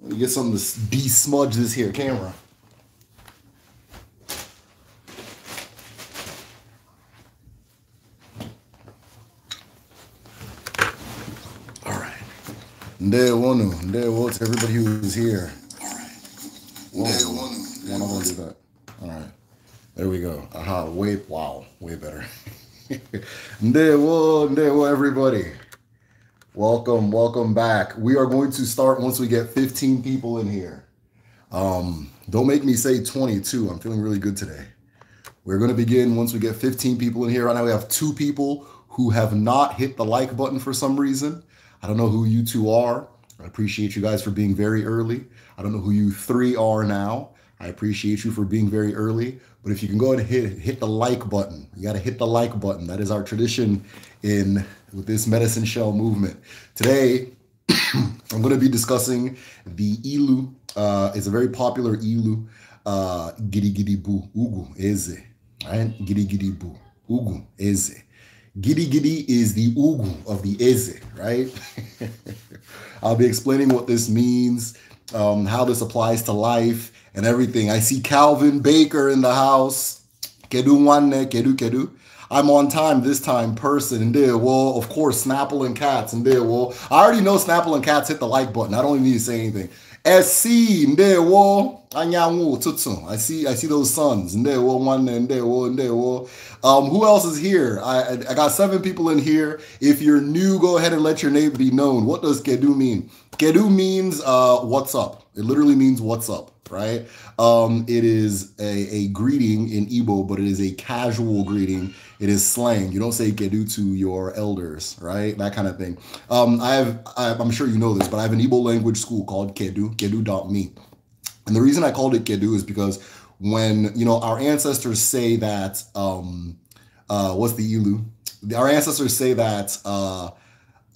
Let me get something to de-smudge this here camera. All right. Day one, day one to everybody who is here. All right. Whoa. one, one. I'm do that. All right. There we go. Aha. Way wow. Way better. day one, day one, everybody. Welcome, welcome back. We are going to start once we get 15 people in here. Um, don't make me say 22. I'm feeling really good today. We're going to begin once we get 15 people in here. Right now, we have two people who have not hit the like button for some reason. I don't know who you two are. I appreciate you guys for being very early. I don't know who you three are now. I appreciate you for being very early. But if you can go ahead and hit, hit the like button, you got to hit the like button. That is our tradition in with this medicine shell movement. Today, I'm going to be discussing the ilu. Uh, it's a very popular ilu. Uh, giri giri bu ugu eze. Right? Giri giri bu ugu eze. Giri giri is the ugu of the eze, right? I'll be explaining what this means, um, how this applies to life, and everything. I see Calvin Baker in the house. Kedu nwanne, kedu kedu. I'm on time this time person and did well, of course, Snapple and Cats and did well. I already know Snapple and Cats hit the like button. I don't even need to say anything. SC ndewo anyanwu tutsu. I see I see those sons. Ndewo one and ndewo. Um who else is here? I I got seven people in here. If you're new, go ahead and let your name be known. What does kedu mean? Kedu means uh what's up. It literally means what's up, right? Um, it is a, a greeting in Igbo, but it is a casual greeting. It is slang. You don't say kedu to your elders, right? That kind of thing. Um, I have, I, am sure you know this, but I have an Igbo language school called kedu, kedu.me. And the reason I called it kedu is because when, you know, our ancestors say that, um, uh, what's the ilu? Our ancestors say that, uh,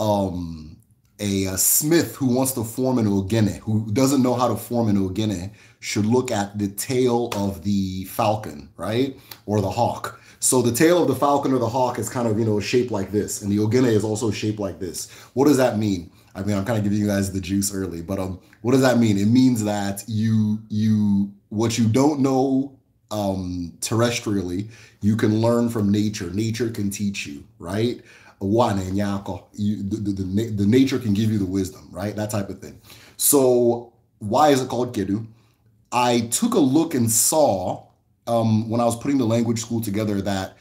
um, a, a, uh, smith who wants to form an ogene, who doesn't know how to form an ogene, should look at the tail of the falcon, right? Or the hawk. So the tail of the falcon or the hawk is kind of, you know, shaped like this. And the ogene is also shaped like this. What does that mean? I mean, I'm kind of giving you guys the juice early, but um, what does that mean? It means that you you what you don't know um terrestrially, you can learn from nature. Nature can teach you, right? one eh, and The, the, the nature can give you the wisdom, right? That type of thing. So why is it called Kedu? I took a look and saw um, when I was putting the language school together that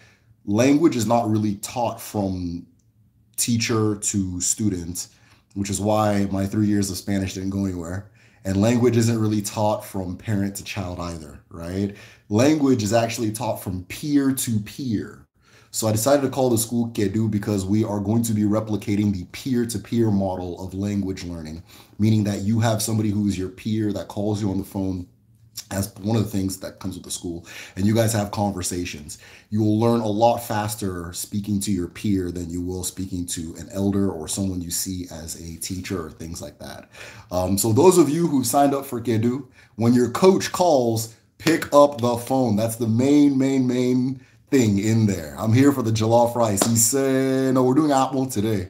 language is not really taught from teacher to student, which is why my three years of Spanish didn't go anywhere. And language isn't really taught from parent to child either, right? Language is actually taught from peer to peer. So I decided to call the school Kedu because we are going to be replicating the peer-to-peer model of language learning, meaning that you have somebody who is your peer that calls you on the phone as one of the things that comes with the school and you guys have conversations you will learn a lot faster speaking to your peer than you will speaking to an elder or someone you see as a teacher or things like that um, so those of you who signed up for kedu when your coach calls pick up the phone that's the main main main thing in there. I'm here for the jollof rice. He said, no, we're doing apple today.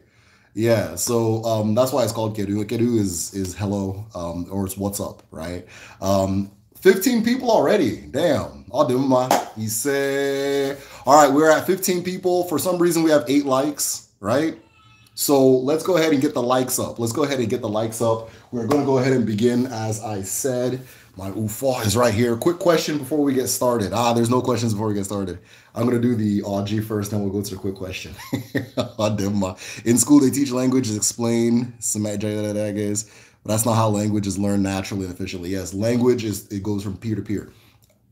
Yeah, so um, that's why it's called Kedu. Kedu is is hello um, or it's what's up, right? Um, 15 people already. Damn. I'll do my. He said, all right, we're at 15 people. For some reason, we have eight likes, right? So let's go ahead and get the likes up. Let's go ahead and get the likes up. We're going to go ahead and begin as I said. My UFA is right here. Quick question before we get started. Ah, there's no questions before we get started. I'm going to do the OG first, then we'll go to the quick question. Uh, in school, they teach languages, explain semantics, but that's not how language is learned naturally and efficiently. Yes, language is, it goes from peer to peer.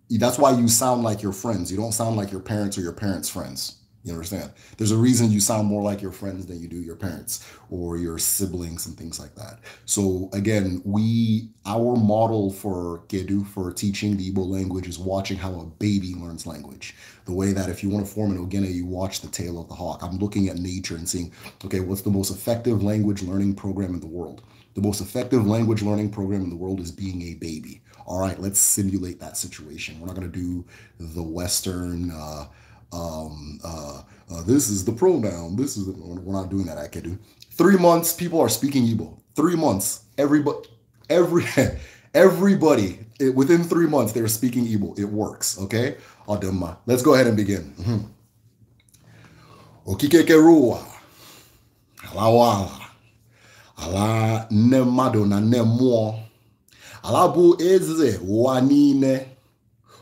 That's why you sound like your friends. You don't sound like your parents or your parents' friends. You understand? There's a reason you sound more like your friends than you do your parents or your siblings and things like that. So again, we our model for gedu for teaching the Igbo language is watching how a baby learns language. The way that if you want to form an Ogene, you watch the tail of the hawk. I'm looking at nature and seeing, okay, what's the most effective language learning program in the world? The most effective language learning program in the world is being a baby. All right, let's simulate that situation. We're not going to do the Western uh, um, uh, uh, this is the pronoun. This is the, we're not doing that. I can do three months. People are speaking Igbo. Three months. Everybody, every everybody it, within three months they're speaking Igbo. It works. Okay, Adema. Let's go ahead and begin. Mm-hmm. Okikekerua, alawala, ala nemado na nne alabu ala bụ eze ụwa niile,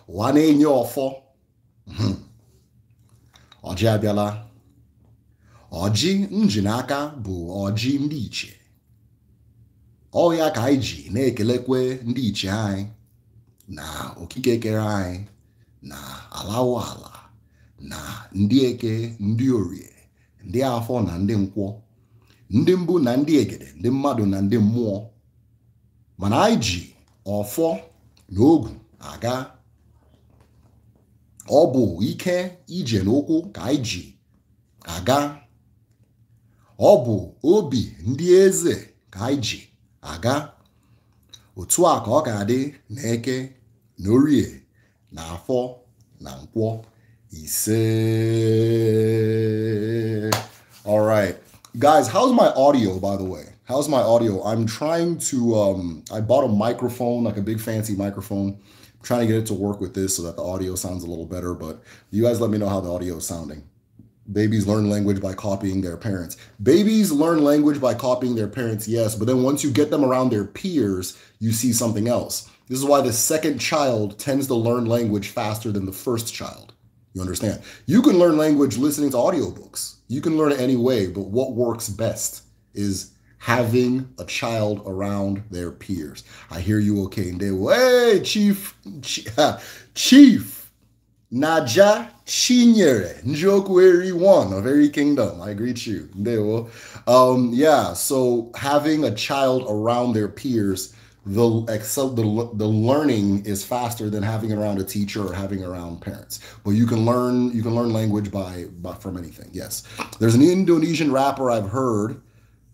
uwa ọjị abịala ọjị nji n'aka bụ ọjị ndị iche ya ka anyị ji na-ekelekwe ndị iche anyị na okike kere anyị na alawo ala na ndị eke ndị orie ndị afọ na ndị nkwọ ndị mbụ na ndị egede ndị mmadụ na ndị mmụọ mana anyị ji ọfọ na ogu aga ọ bụ ike ije n'ụkwụ ka anyị ji aga ọ bụ obi ndị eze ka anyị ji aga otu a ka ọ ga-adị na eke na orie na afọ na nkwọ ise all right guys how's my audio by the way how's my audio i'm trying to um i bought a microphone like a big fancy microphone I'm trying to get it to work with this so that the audio sounds a little better, but you guys let me know how the audio is sounding. Babies learn language by copying their parents. Babies learn language by copying their parents, yes, but then once you get them around their peers, you see something else. This is why the second child tends to learn language faster than the first child. You understand? You can learn language listening to audiobooks. You can learn it any way, but what works best is having a child around their peers. I hear you okay. And they will, hey, Chief, Chief, Naja Chinyere, Njokweri one of every kingdom. I greet you. They will. Um, yeah, so having a child around their peers, the excel the, the learning is faster than having around a teacher or having around parents but you can learn you can learn language by, by from anything yes there's an indonesian rapper i've heard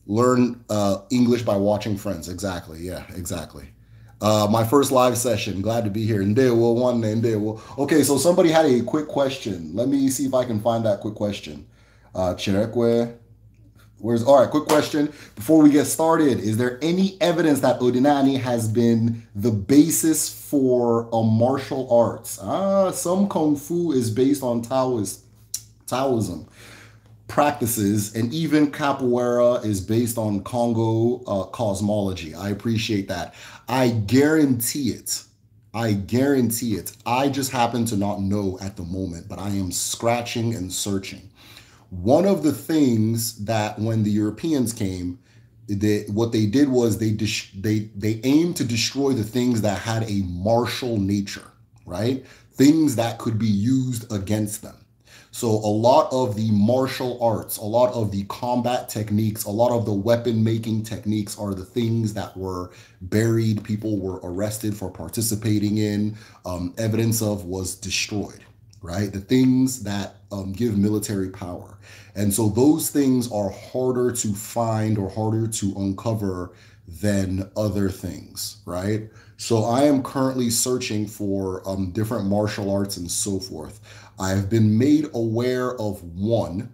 learn uh, English by watching Friends. Exactly. Yeah, exactly. Uh, my first live session. Glad to be here. And there will one and there will. Okay, so somebody had a quick question. Let me see if I can find that quick question. Uh, where's all right? Quick question before we get started. Is there any evidence that Odinani has been the basis for a martial arts? Ah, some kung fu is based on Taoist, Taoism practices, and even capoeira is based on Congo uh, cosmology. I appreciate that. I guarantee it. I guarantee it. I just happen to not know at the moment, but I am scratching and searching. One of the things that when the Europeans came, they, what they did was they they they aimed to destroy the things that had a martial nature, right? Things that could be used against them. So a lot of the martial arts, a lot of the combat techniques, a lot of the weapon making techniques are the things that were buried, people were arrested for participating in, um, evidence of was destroyed, right? The things that um, give military power. And so those things are harder to find or harder to uncover than other things, right? So I am currently searching for um, different martial arts and so forth. I have been made aware of one,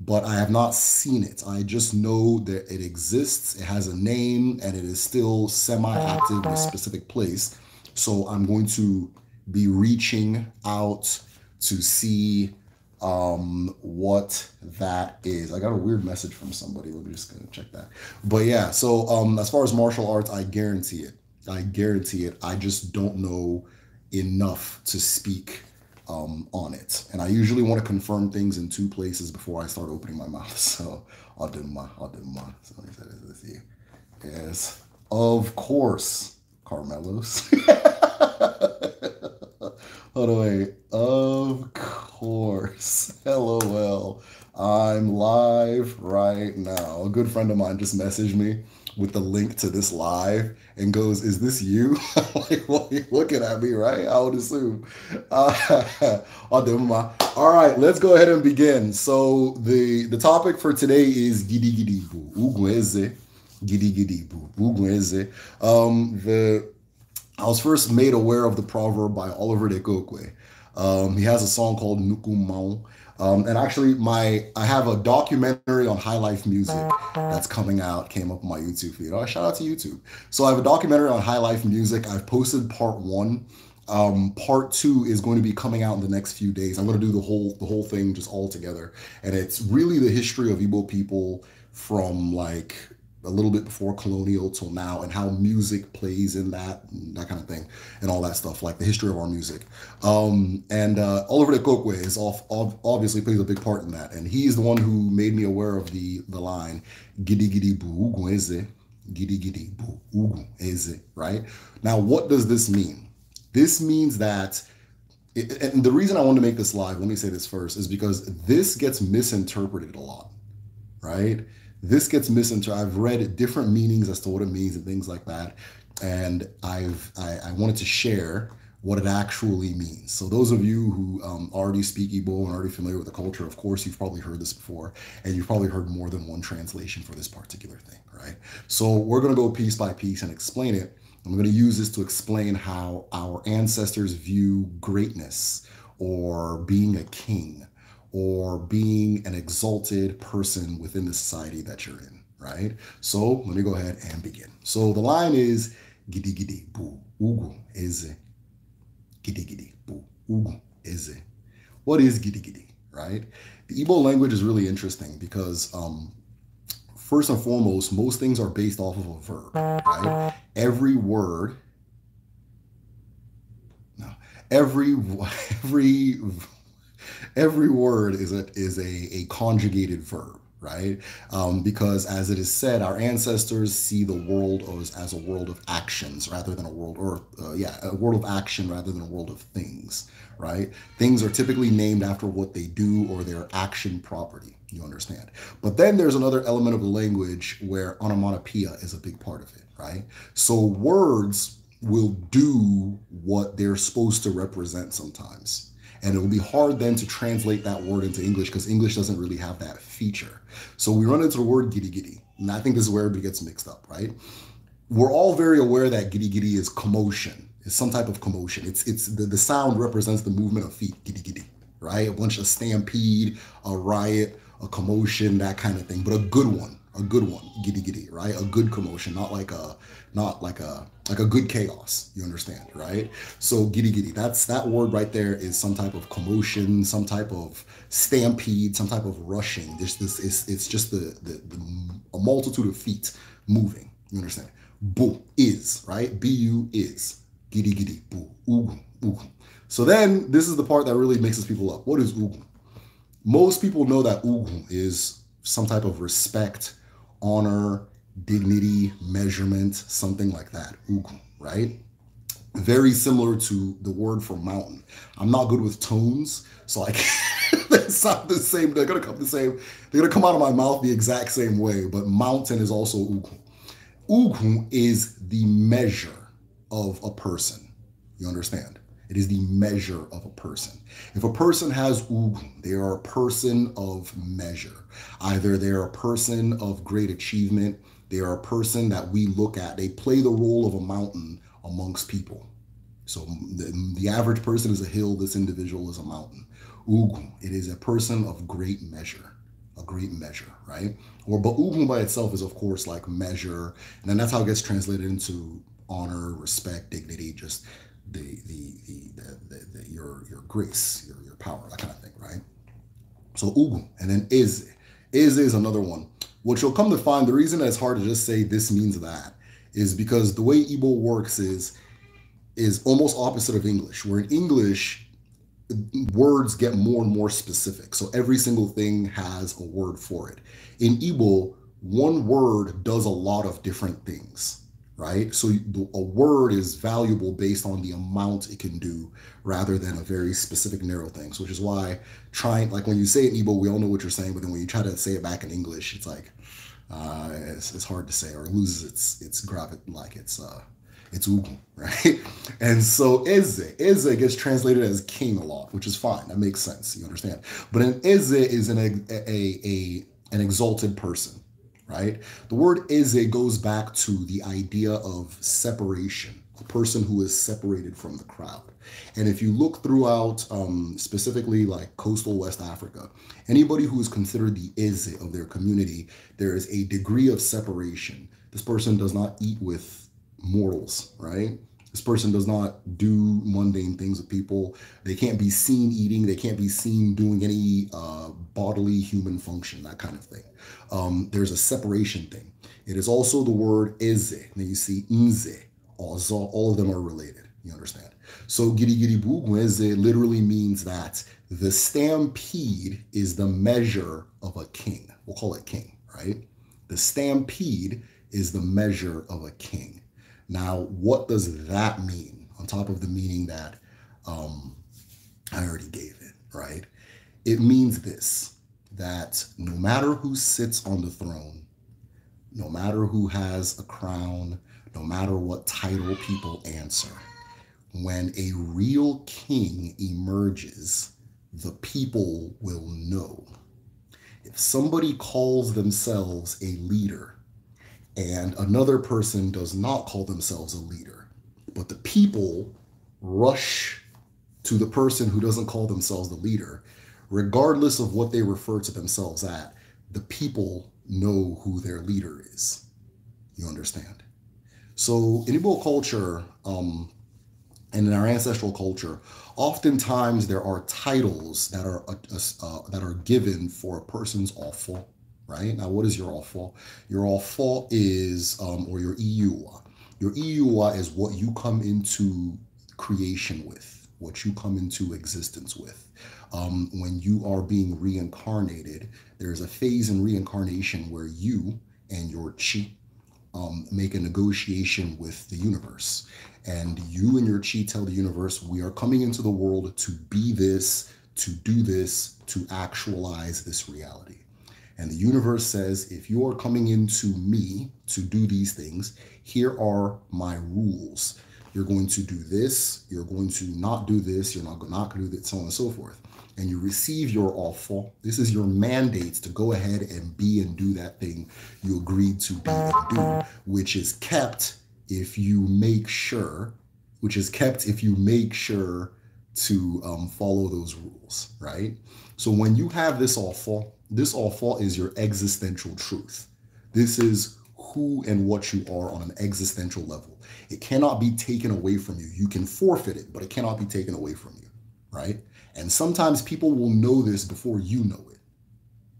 but I have not seen it. I just know that it exists, it has a name, and it is still semi active in a specific place. So I'm going to be reaching out to see um, what that is. I got a weird message from somebody. Let me just gonna check that. But yeah, so um, as far as martial arts, I guarantee it. I guarantee it. I just don't know enough to speak um, on it. And I usually want to confirm things in two places before I start opening my mouth. So I'll do my, I'll do my. So you. Yes, of course, Carmelos. By the way, of course, LOL. I'm live right now. A good friend of mine just messaged me with the link to this live and goes, "Is this you?" like, what are you looking at me, right? I would assume. Uh, all right, let's go ahead and begin. So the the topic for today is gidi gidi bu ugweze, gidi gidi bu ugweze. Um, the I was first made aware of the proverb by Oliver de Kokwe. Um, he has a song called Nukumau. Um, and actually, my I have a documentary on High Life Music uh-huh. that's coming out. Came up on my YouTube feed. Oh, shout out to YouTube. So I have a documentary on High Life Music. I've posted part one. Um, part two is going to be coming out in the next few days. I'm going to do the whole the whole thing just all together, and it's really the history of Igbo people from like a little bit before colonial till now and how music plays in that that kind of thing and all that stuff like the history of our music um, and uh, oliver de Kokwe is off, obviously plays a big part in that and he's the one who made me aware of the the line giddy giddy boo eze giddy giddy boo right now what does this mean this means that it, and the reason i want to make this live let me say this first is because this gets misinterpreted a lot right this gets misinterpreted. I've read different meanings as to what it means and things like that. And I've I, I wanted to share what it actually means. So those of you who um, already speak Igbo and already familiar with the culture, of course, you've probably heard this before, and you've probably heard more than one translation for this particular thing, right? So we're gonna go piece by piece and explain it. I'm gonna use this to explain how our ancestors view greatness or being a king or being an exalted person within the society that you're in, right? So let me go ahead and begin. So the line is gidi gidi bu ugu eze. Gidi gidi bu ugu eze. What is gidi gidi, right? The Igbo language is really interesting because um, first and foremost, most things are based off of a verb, right? Every word, no, every every every word is a is a, a conjugated verb right um, because as it is said our ancestors see the world as, as a world of actions rather than a world or uh, yeah a world of action rather than a world of things right things are typically named after what they do or their action property you understand but then there's another element of the language where onomatopoeia is a big part of it right so words will do what they're supposed to represent sometimes and it will be hard then to translate that word into English because English doesn't really have that feature. So we run into the word giddy giddy. And I think this is where everybody gets mixed up, right? We're all very aware that giddy giddy is commotion, it's some type of commotion. It's it's the, the sound represents the movement of feet, giddy giddy, right? A bunch of stampede, a riot, a commotion, that kind of thing, but a good one a good one, giddy giddy, right? A good commotion, not like a, not like a, like a good chaos. You understand, right? So giddy giddy. That's that word right there is some type of commotion, some type of stampede, some type of rushing. There's this it's it's just the, the the a multitude of feet moving. You understand? Boo is right. Bu is giddy giddy. Boo. ugu So then this is the part that really mixes people up. What is ugu? Most people know that ugu is some type of respect honor, dignity, measurement, something like that. Ugu, right? Very similar to the word for mountain. I'm not good with tones, so like they sound the same. They're gonna come the same. They're gonna come out of my mouth the exact same way. But mountain is also ugu. Ugu is the measure of a person. You understand? It is the measure of a person. If a person has ugu, they are a person of measure. Either they are a person of great achievement, they are a person that we look at. They play the role of a mountain amongst people. So the, the average person is a hill, this individual is a mountain. Ugu. it is a person of great measure a great measure, right? Or ugu by itself is of course like measure, and then that's how it gets translated into honor, respect, dignity, just the the the, the, the, the your your grace, your, your power, that kind of thing, right? So ugu, and then is is is another one. What you'll come to find, the reason that it's hard to just say this means that is because the way Igbo works is is almost opposite of English, where in English words get more and more specific. So every single thing has a word for it. In Igbo, one word does a lot of different things right? So a word is valuable based on the amount it can do rather than a very specific narrow thing. So which is why trying, like when you say it in Igbo, we all know what you're saying, but then when you try to say it back in English, it's like, uh, it's, it's hard to say or it loses its, its gravity, like it's, uh, it's Ugu, right? And so Eze, Eze gets translated as king a lot, which is fine. That makes sense. You understand. But an Eze is an, a, a, a, an exalted person right? The word eze goes back to the idea of separation, a person who is separated from the crowd. And if you look throughout, um, specifically like coastal West Africa, anybody who is considered the eze of their community, there is a degree of separation. This person does not eat with mortals, right? This person does not do mundane things with people. They can't be seen eating. They can't be seen doing any uh, bodily human function, that kind of thing. Um, there's a separation thing. It is also the word eze. And then you see "inze." All of them are related. You understand? So bu giri literally means that the stampede is the measure of a king. We'll call it king, right? The stampede is the measure of a king. Now, what does that mean on top of the meaning that um, I already gave it, right? It means this that no matter who sits on the throne, no matter who has a crown, no matter what title people answer, when a real king emerges, the people will know. If somebody calls themselves a leader, and another person does not call themselves a leader, but the people rush to the person who doesn't call themselves the leader, regardless of what they refer to themselves at, the people know who their leader is. You understand? So in Igbo culture, um, and in our ancestral culture, oftentimes there are titles that are uh, uh, that are given for a person's awful right? Now, what is your offer? Your offer is, um, or your EUA. Your EUA is what you come into creation with, what you come into existence with. Um, when you are being reincarnated, there's a phase in reincarnation where you and your chi um, make a negotiation with the universe. And you and your chi tell the universe, we are coming into the world to be this, to do this, to actualize this reality. And the universe says, if you are coming into me to do these things, here are my rules. You're going to do this, you're going to not do this, you're not, going to do that, so on and so forth. And you receive your offer. This is your mandates to go ahead and be and do that thing you agreed to be and do, which is kept if you make sure, which is kept if you make sure to um, follow those rules, right? So when you have this offer, this all fall is your existential truth. This is who and what you are on an existential level. It cannot be taken away from you. You can forfeit it, but it cannot be taken away from you, right? And sometimes people will know this before you know it,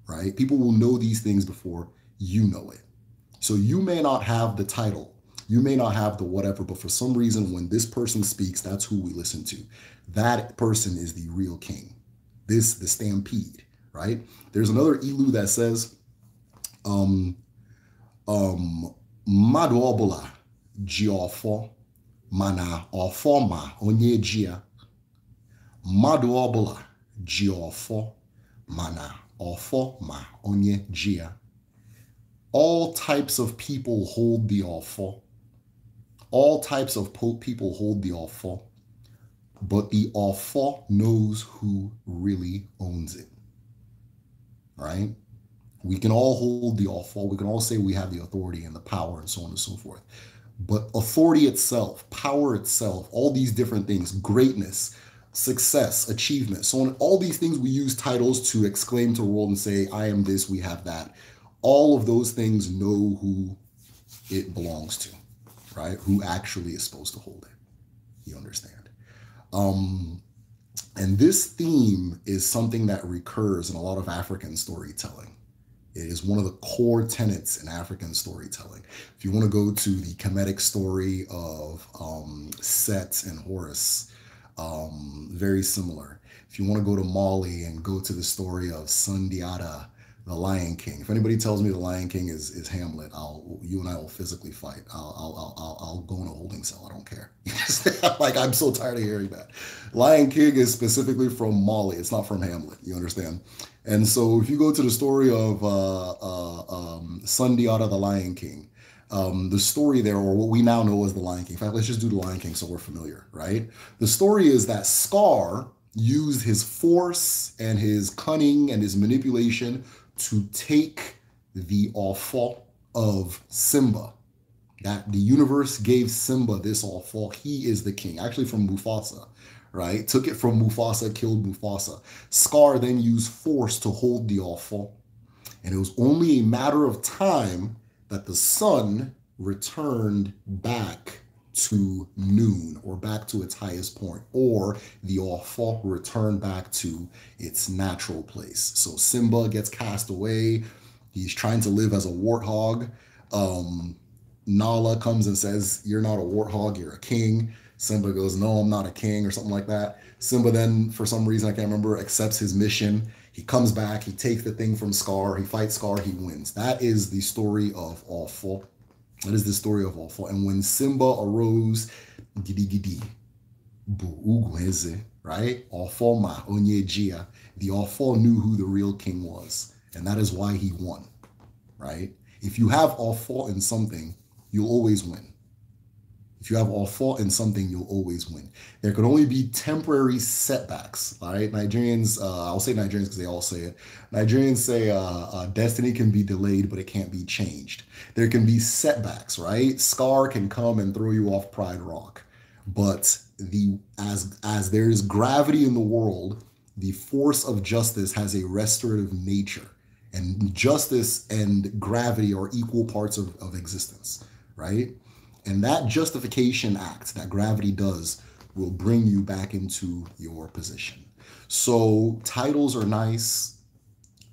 right? People will know these things before you know it. So you may not have the title, you may not have the whatever, but for some reason, when this person speaks, that's who we listen to. That person is the real king. This, the stampede right? There's another ilu that says, um, um, mmadụ jiofo mana ọfọ ma onye jiofo, mana ọfọ ma All types of people hold the ọfọ. All types of people hold the ọfọ. But the ọfọ knows who really owns it right? We can all hold the awful. We can all say we have the authority and the power and so on and so forth. But authority itself, power itself, all these different things, greatness, success, achievement, so on, all these things we use titles to exclaim to the world and say, I am this, we have that. All of those things know who it belongs to, right? Who actually is supposed to hold it. You understand? Um, and this theme is something that recurs in a lot of African storytelling. It is one of the core tenets in African storytelling. If you want to go to the comedic story of um, Set and Horus, um, very similar. If you want to go to Mali and go to the story of Sundiata the Lion King. If anybody tells me The Lion King is is Hamlet, I'll you and I will physically fight. I'll I'll I'll, I'll go in a holding cell. I don't care. like I'm so tired of hearing that. Lion King is specifically from Molly. It's not from Hamlet. You understand? And so if you go to the story of uh, uh, um, Sundiata the Lion King, um, the story there, or what we now know as the Lion King. In fact, let's just do the Lion King so we're familiar, right? The story is that Scar used his force and his cunning and his manipulation to take the offer of Simba. That the universe gave Simba this offer. He is the king. Actually, from Mufasa, right? Took it from Mufasa, killed Mufasa. Scar then used force to hold the offer. And it was only a matter of time that the sun returned back to noon or back to its highest point, or the awful return back to its natural place. So Simba gets cast away. He's trying to live as a warthog. Um, Nala comes and says, You're not a warthog, you're a king. Simba goes, No, I'm not a king, or something like that. Simba then, for some reason, I can't remember, accepts his mission. He comes back, he takes the thing from Scar, he fights Scar, he wins. That is the story of Awful that is the story of Ofo. And when Simba arose, gidi gidi, bu right? Ofo ma onyejia. The Ofo knew who the real king was, and that is why he won, right? If you have Ofo in something, you'll always win. If you have all four in something, you'll always win. There could only be temporary setbacks. All right, Nigerians. Uh, I'll say Nigerians because they all say it. Nigerians say uh, uh, destiny can be delayed, but it can't be changed. There can be setbacks. Right, scar can come and throw you off Pride Rock, but the as as there is gravity in the world, the force of justice has a restorative nature, and justice and gravity are equal parts of, of existence. Right and that justification act that gravity does will bring you back into your position. So titles are nice,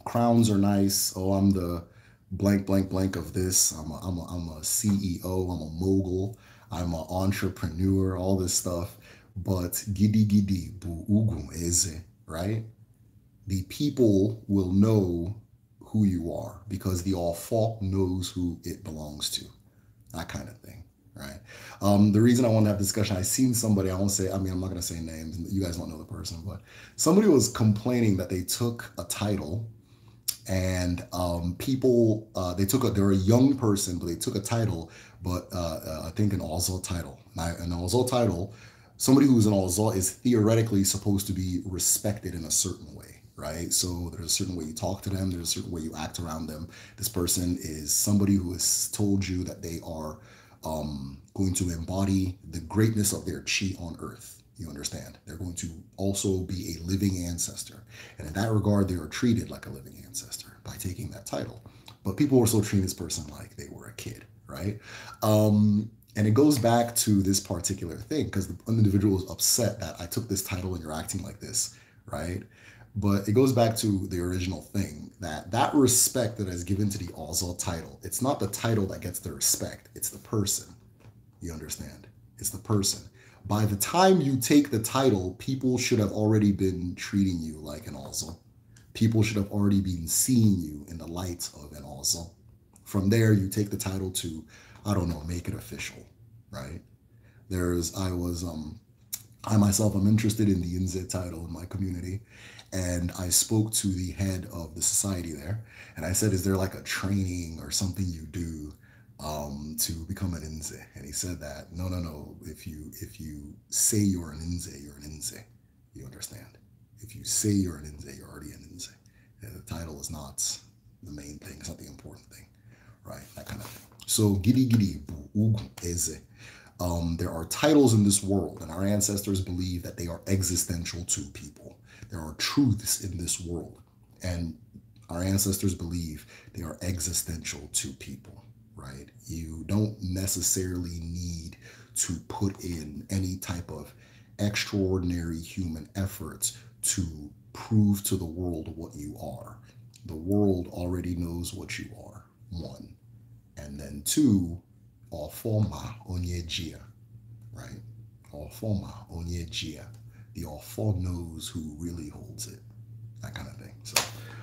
crowns are nice. Oh, I'm the blank, blank, blank of this. I'm a, I'm a, I'm a CEO, I'm a mogul, I'm an entrepreneur, all this stuff. But gidi gidi bu ugum eze, right? The people will know who you are because the all fault knows who it belongs to. That kind of thing right? Um, the reason I want to have discussion, I seen somebody, I won't say, I mean, I'm not going to say names, you guys won't know the person, but somebody was complaining that they took a title and um, people, uh, they took a, they're a young person, but they took a title, but uh, uh, I think an Ozol title. an Ozol title, somebody who's an Ozol is theoretically supposed to be respected in a certain way right? So there's a certain way you talk to them, there's a certain way you act around them. This person is somebody who has told you that they are um, going to embody the greatness of their chi on earth. You understand? They're going to also be a living ancestor. And in that regard, they are treated like a living ancestor by taking that title. But people were still treating this person like they were a kid, right? Um, and it goes back to this particular thing because the individual is upset that I took this title and you're acting like this, right? but it goes back to the original thing that that respect that is given to the Azal title, it's not the title that gets the respect, it's the person. You understand? It's the person. By the time you take the title, people should have already been treating you like an Azal. People should have already been seeing you in the light of an Azal. From there, you take the title to, I don't know, make it official, right? There's, I was, um, I myself am interested in the NZ title in my community and I spoke to the head of the society there, and I said, "Is there like a training or something you do um, to become an inze?" And he said that, "No, no, no. If you if you say you're an inze, you're an inze. You understand? If you say you're an inze, you're already an inze. And the title is not the main thing. It's not the important thing, right? That kind of thing. So gidi gidi eze." Um, there are titles in this world, and our ancestors believe that they are existential to people there are truths in this world, and our ancestors believe they are existential to people, right? You don't necessarily need to put in any type of extraordinary human efforts to prove to the world what you are. The world already knows what you are, one. And then two, all forma onyejia, right? All forma onyejia the awful knows who really holds it. That kind of thing. So,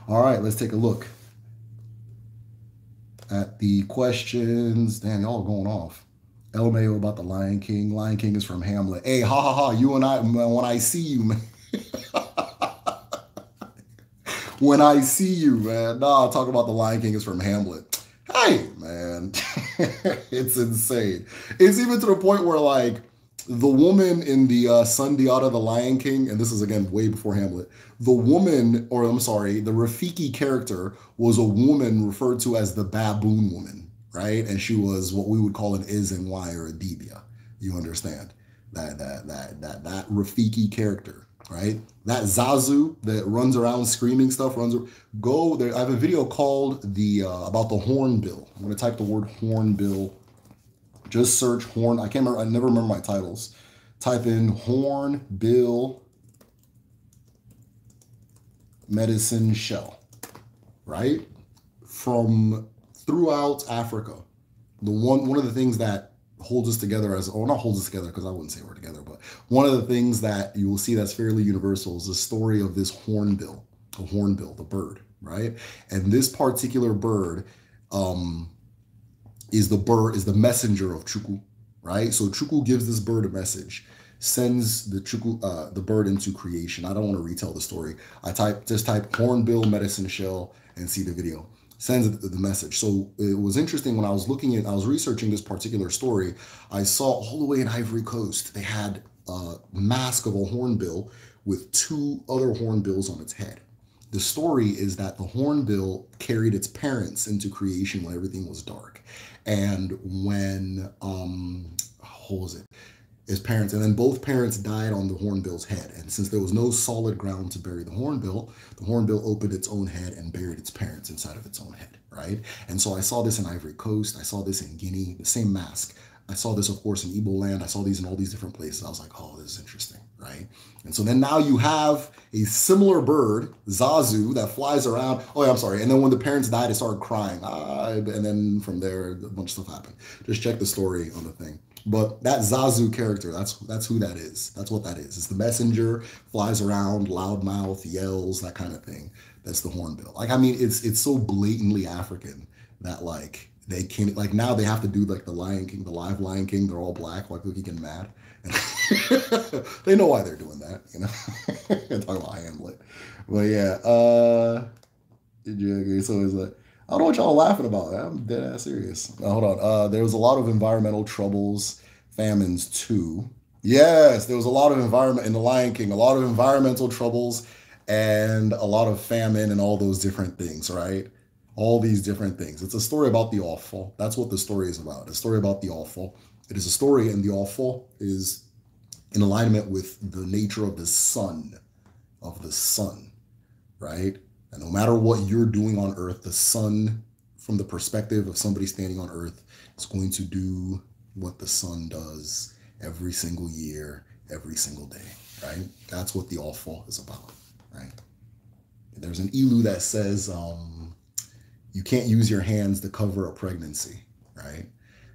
all right, let's take a look at the questions. Damn, y'all going off. LMAO about the Lion King. Lion King is from Hamlet. Hey, ha ha ha. You and I, when I see you, man. when I see you, man. Nah, talk about the Lion King is from Hamlet. Hey, man. it's insane. It's even to the point where, like, the woman in the uh, Sun Diata, the Lion King, and this is again way before Hamlet. The woman, or I'm sorry, the Rafiki character was a woman referred to as the baboon woman, right? And she was what we would call an is and why or a debia. You understand that that that that that Rafiki character, right? That Zazu that runs around screaming stuff runs. Go there. I have a video called the uh, about the hornbill. I'm gonna type the word hornbill just search Horn. I can't remember. I never remember my titles. Type in Horn Bill Medicine Shell, right? From throughout Africa. The one one of the things that holds us together as or not holds us together because I wouldn't say we're together, but one of the things that you will see that's fairly universal is the story of this hornbill, the hornbill, the bird, right? And this particular bird um, is the bird, is the messenger of Chukwu, right? So Chukwu gives this bird a message, sends the Chukwu, uh, the bird into creation. I don't want to retell the story. I type just type hornbill medicine shell and see the video. Sends the message. So it was interesting when I was looking at, I was researching this particular story. I saw all the way in Ivory Coast, they had a mask of a hornbill with two other hornbills on its head. The story is that the hornbill carried its parents into creation when everything was dark and when um, what was it? His parents, and then both parents died on the hornbill's head. And since there was no solid ground to bury the hornbill, the hornbill opened its own head and buried its parents inside of its own head, right? And so I saw this in Ivory Coast, I saw this in Guinea, the same mask. I saw this, of course, in Igbo land. I saw these in all these different places. I was like, oh, this is interesting right? And so then now you have a similar bird, Zazu, that flies around. Oh, yeah, I'm sorry. And then when the parents died, it started crying. Ah, and then from there, a bunch of stuff happened. Just check the story on the thing. But that Zazu character, that's that's who that is. That's what that is. It's the messenger, flies around, loudmouth, yells, that kind of thing. That's the hornbill. Like I mean, it's it's so blatantly African that like they can't like now they have to do like the Lion King, the live Lion King. They're all black, like looking mad they know why they're doing that, you know. talking about Hamlet, but yeah. Uh, it's so like I don't know what y'all laughing about. I'm dead ass serious. Now, hold on. Uh, there was a lot of environmental troubles, famines too. Yes, there was a lot of environment in The Lion King. A lot of environmental troubles and a lot of famine and all those different things, right? All these different things. It's a story about the awful. That's what the story is about. A story about the awful. It is a story, and the awful is in alignment with the nature of the sun, of the sun, right? And no matter what you're doing on earth, the sun, from the perspective of somebody standing on earth, is going to do what the sun does every single year, every single day, right? That's what the awful is about, right? There's an elu that says, um, you can't use your hands to cover a pregnancy, right?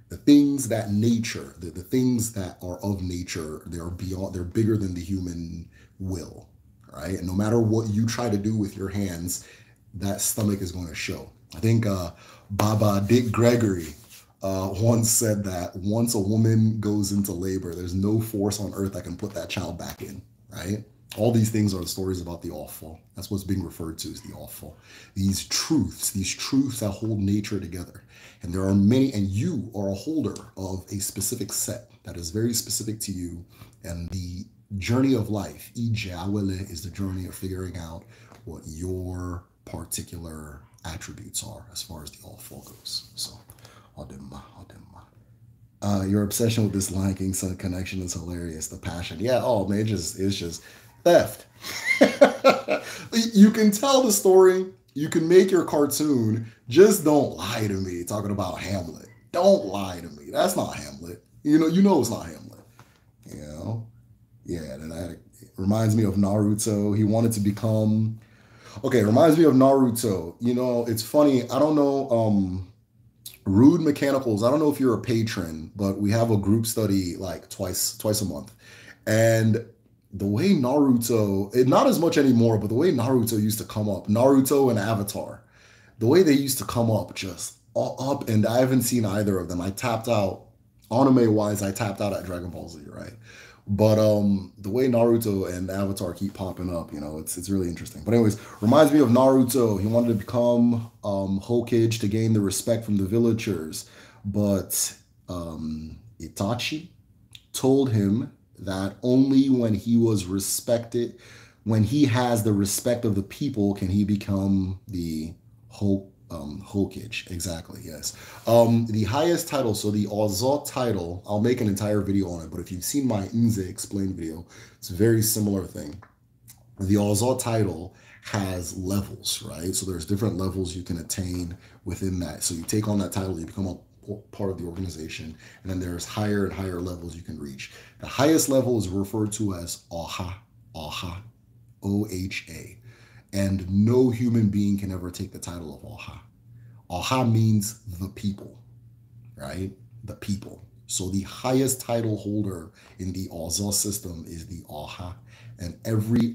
the things that nature, the, the things that are of nature, they're beyond, they're bigger than the human will, right? And no matter what you try to do with your hands, that stomach is going to show. I think uh, Baba Dick Gregory uh, once said that once a woman goes into labor, there's no force on earth that can put that child back in, right? All these things are the stories about the awful. That's what's being referred to as the awful. These truths, these truths that hold nature together. And there are many, and you are a holder of a specific set that is very specific to you. And the journey of life, Ijawele, is the journey of figuring out what your particular attributes are as far as the all four goes. So, Odimma, Odimma. Uh, your obsession with this Lion King connection is hilarious. The passion, yeah. Oh man, it's just it's just theft. you can tell the story you can make your cartoon. Just don't lie to me talking about Hamlet. Don't lie to me. That's not Hamlet. You know, you know it's not Hamlet. You know? Yeah, that reminds me of Naruto. He wanted to become Okay, reminds me of Naruto. You know, it's funny. I don't know um Rude Mechanicals. I don't know if you're a patron, but we have a group study like twice twice a month. And the way Naruto, eh, not as much anymore, but the way Naruto used to come up, Naruto and Avatar, the way they used to come up just up, and I haven't seen either of them. I tapped out, anime wise, I tapped out at Dragon Ball Z, right? But um, the way Naruto and Avatar keep popping up, you know, it's it's really interesting. But anyways, reminds me of Naruto. He wanted to become um, Hokage to gain the respect from the villagers, but um, Itachi told him that only when he was respected, when he has the respect of the people, can he become the hope. Um, Hulkage, exactly, yes. Um, the highest title, so the Ozot title, I'll make an entire video on it, but if you've seen my Inze explained video, it's a very similar thing. The Ozot title has levels, right? So there's different levels you can attain within that. So you take on that title, you become a part of the organization. And then there's higher and higher levels you can reach. The highest level is referred to as AHA, AHA, O H A. And no human being can ever take the title of AHA. AHA means the people, right? The people. So the highest title holder in the Ozo system is the AHA. And every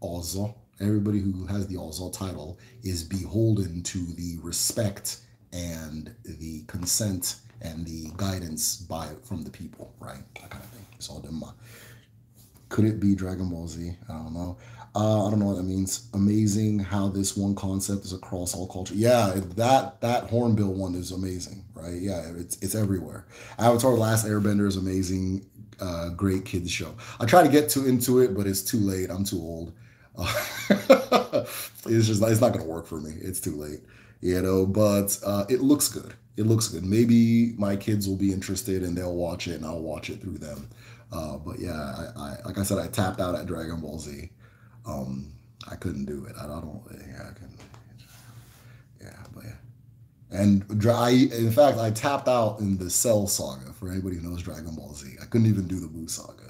Ozo, everybody who has the Ozo title, is beholden to the respect and the consent and the guidance by from the people, right? That kind of thing. It's all Dhamma. Could it be Dragon Ball Z? I don't know. Uh, I don't know what that means. Amazing how this one concept is across all culture. Yeah, that that hornbill one is amazing, right? Yeah, it's it's everywhere. Avatar: The Last Airbender is amazing. Uh, great kids show. I try to get too into it, but it's too late. I'm too old. Uh, it's just it's not gonna work for me. It's too late you know, but uh, it looks good. It looks good. Maybe my kids will be interested and they'll watch it and I'll watch it through them. Uh, but yeah, I, I, like I said, I tapped out at Dragon Ball Z. Um, I couldn't do it. I, I don't. Yeah, I can. Yeah, but yeah. And dry. in fact, I tapped out in the Cell Saga. For anybody who knows Dragon Ball Z, I couldn't even do the Buu Saga.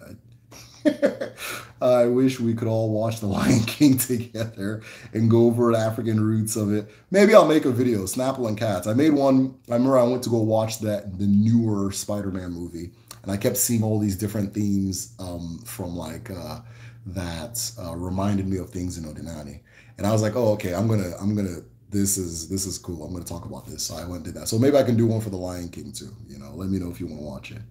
I wish we could all watch The Lion King together and go over the African roots of it. Maybe I'll make a video, Snapple and Cats. I made one. I remember I went to go watch that the newer Spider-Man movie, and I kept seeing all these different themes um, from like uh, that uh, reminded me of things in Odinani. And I was like, oh, okay, I'm gonna, I'm gonna. This is this is cool. I'm gonna talk about this. So I went and did that. So maybe I can do one for The Lion King too. You know, let me know if you want to watch it.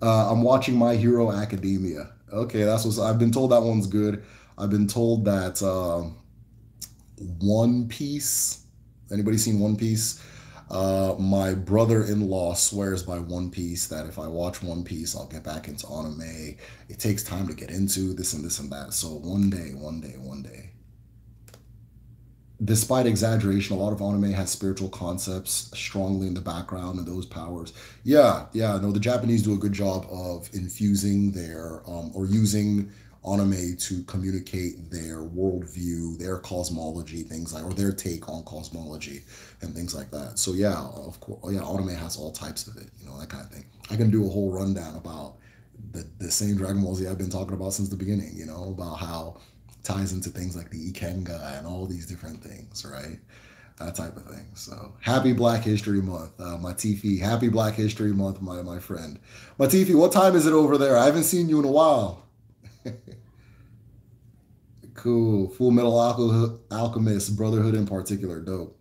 Uh, I'm watching My Hero Academia. Okay, that's what I've been told. That one's good. I've been told that uh, One Piece. Anybody seen One Piece? Uh, my brother-in-law swears by One Piece that if I watch One Piece, I'll get back into anime. It takes time to get into this and this and that. So one day, one day, one day despite exaggeration, a lot of anime has spiritual concepts strongly in the background and those powers. Yeah, yeah, no, the Japanese do a good job of infusing their um, or using anime to communicate their worldview, their cosmology, things like or their take on cosmology and things like that. So yeah, of course, oh, yeah, anime has all types of it, you know, that kind of thing. I can do a whole rundown about the the same Dragon Ball Z I've been talking about since the beginning, you know, about how ties into things like the Ikenga and all these different things, right? That type of thing. So happy Black History Month, uh, Matifi. Happy Black History Month, my my friend. Matifi, what time is it over there? I haven't seen you in a while. cool. Full Metal Alchemist, Alchemist Brotherhood in particular, dope.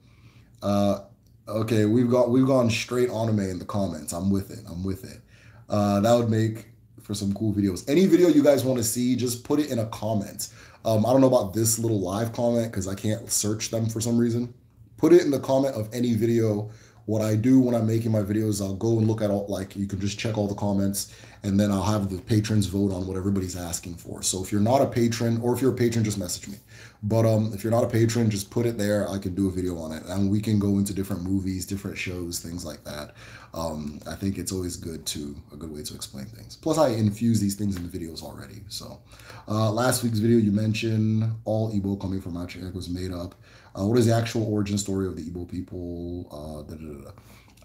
Uh, okay, we've got we've gone straight anime in the comments. I'm with it. I'm with it. Uh, that would make for some cool videos. Any video you guys want to see, just put it in a comment. Um, I don't know about this little live comment because I can't search them for some reason. Put it in the comment of any video. What I do when I'm making my videos, I'll go and look at all, like, you can just check all the comments and then I'll have the patrons vote on what everybody's asking for. So if you're not a patron, or if you're a patron, just message me. But um, if you're not a patron, just put it there. I can do a video on it, and we can go into different movies, different shows, things like that. Um, I think it's always good to a good way to explain things. Plus, I infuse these things in the videos already. So uh, last week's video, you mentioned all Igbo coming from Achek was made up. Uh, what is the actual origin story of the Igbo people? Uh, da, da, da,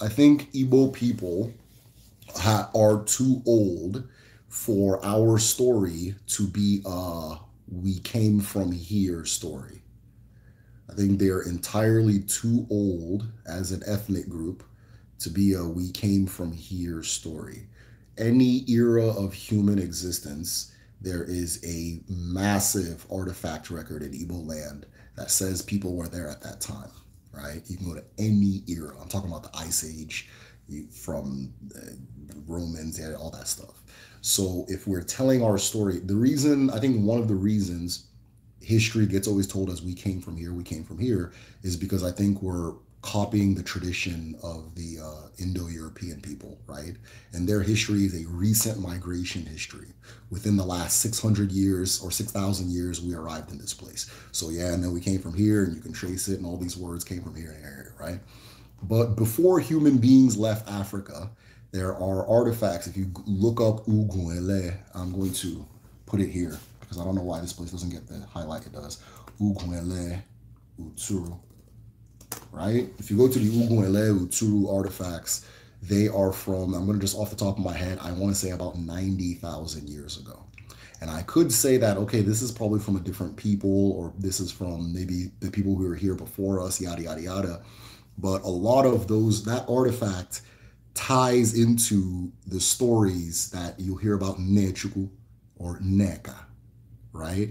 I think Igbo people are too old for our story to be a we came from here story. I think they are entirely too old as an ethnic group to be a we came from here story. Any era of human existence, there is a massive artifact record in Igbo land that says people were there at that time, right? You can go to any era. I'm talking about the Ice Age from uh, Romans, they had all that stuff. So if we're telling our story, the reason I think one of the reasons history gets always told as we came from here, we came from here, is because I think we're copying the tradition of the uh, Indo-European people, right? And their history is a recent migration history. Within the last 600 years or 6,000 years, we arrived in this place. So yeah, and then we came from here, and you can trace it, and all these words came from here and here, right? But before human beings left Africa, there are artifacts. If you look up Uguele, I'm going to put it here because I don't know why this place doesn't get the highlight it does. Uguele Uturu, right? If you go to the Uguele Uturu artifacts, they are from, I'm going to just off the top of my head, I want to say about 90,000 years ago. And I could say that, okay, this is probably from a different people, or this is from maybe the people who were here before us, yada, yada, yada. But a lot of those, that artifact ties into the stories that you will hear about Nechuku or Neka, right?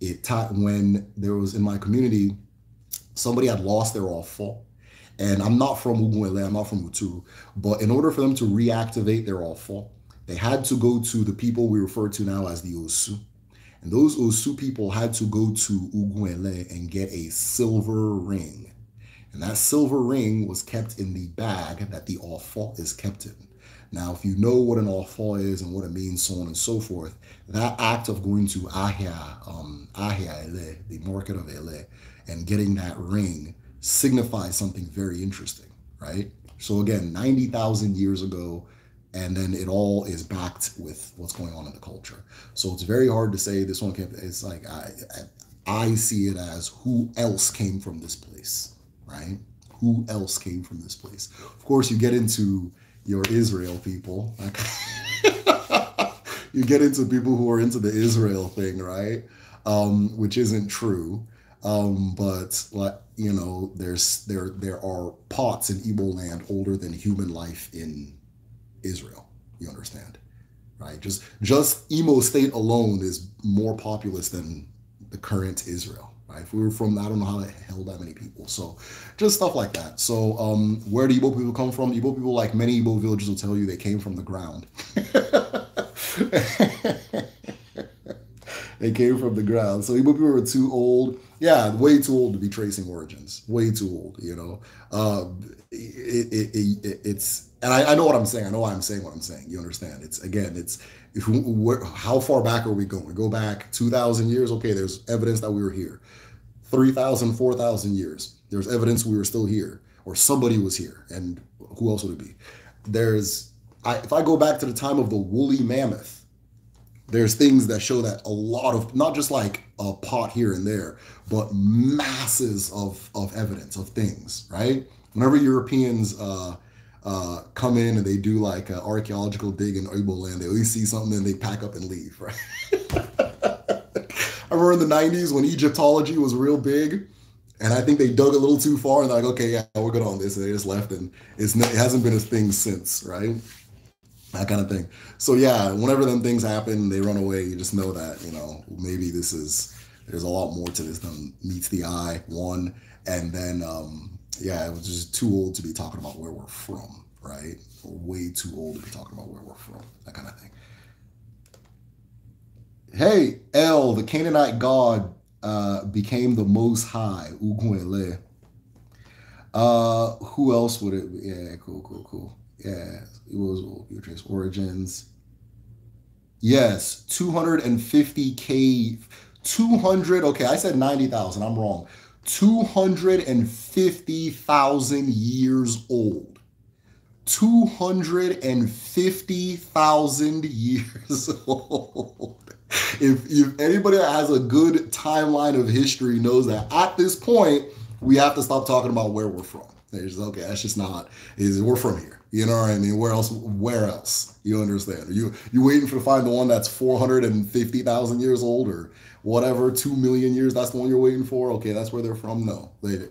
It taught when there was in my community, somebody had lost their offal. And I'm not from Uguele, I'm not from Uturu, but in order for them to reactivate their offal, they had to go to the people we refer to now as the Osu. And those Osu people had to go to Uguele and get a silver ring and that silver ring was kept in the bag that the offal is kept in. Now, if you know what an offal is and what it means, so on and so forth, that act of going to Ahia, um, Ahia Ele, the market of Ele, and getting that ring signifies something very interesting, right? So again, 90,000 years ago, and then it all is backed with what's going on in the culture. So it's very hard to say this one can't, it's like, I, I, I see it as who else came from this place right? Who else came from this place? Of course, you get into your Israel people. you get into people who are into the Israel thing, right? Um, which isn't true. Um, but like you know, there's there there are pots in Igbo land older than human life in Israel. You understand, right? Just just Emo state alone is more populous than the current Israel. Right? If we were from, I don't know how the hell that many people. So just stuff like that. So um, where do Igbo people come from? Igbo people, like many Igbo villages, will tell you they came from the ground. they came from the ground. So Igbo people were too old. Yeah, way too old to be tracing origins. Way too old, you know. Uh, it, it, it, it's, and I, I, know what I'm saying. I know why I'm saying what I'm saying. You understand? It's, again, it's, if, where, how far back are we going? We go back 2,000 years. Okay, there's evidence that we were here. 3,000, 4,000 years. There's evidence we were still here or somebody was here. And who else would it be? There's, I, if I go back to the time of the woolly mammoth, there's things that show that a lot of, not just like a pot here and there, but masses of, of evidence of things, right? Whenever Europeans uh, uh, come in and they do like an uh, archaeological dig in Igbo land, they always see something and they pack up and leave, right? I remember in the 90s when Egyptology was real big, and I think they dug a little too far and they're like, okay, yeah, we're good on this. And they just left, and it's, it hasn't been a thing since, right? That kind of thing. So, yeah, whenever them things happen, they run away, you just know that, you know, maybe this is, there's a lot more to this than meets the eye, one. And then, um, yeah, it was just too old to be talking about where we're from, right? Way too old to be talking about where we're from, that kind of thing. Hey, El, the Canaanite god, uh, became the Most High, Uguenle. Uh, who else would it? Be? Yeah, cool, cool, cool. Yeah, it was Beatrice Origins. Yes, 250k, 200. Okay, I said 90,000. I'm wrong. 250,000 years old. 250,000 years old if if anybody that has a good timeline of history knows that at this point we have to stop talking about where we're from. It's okay, that's just not. Is we're from here. You know what I mean? Where else? Where else? You understand? Are you you waiting for to find the one that's four hundred and fifty thousand years old or whatever, two million years? That's the one you're waiting for. Okay, that's where they're from. No, they,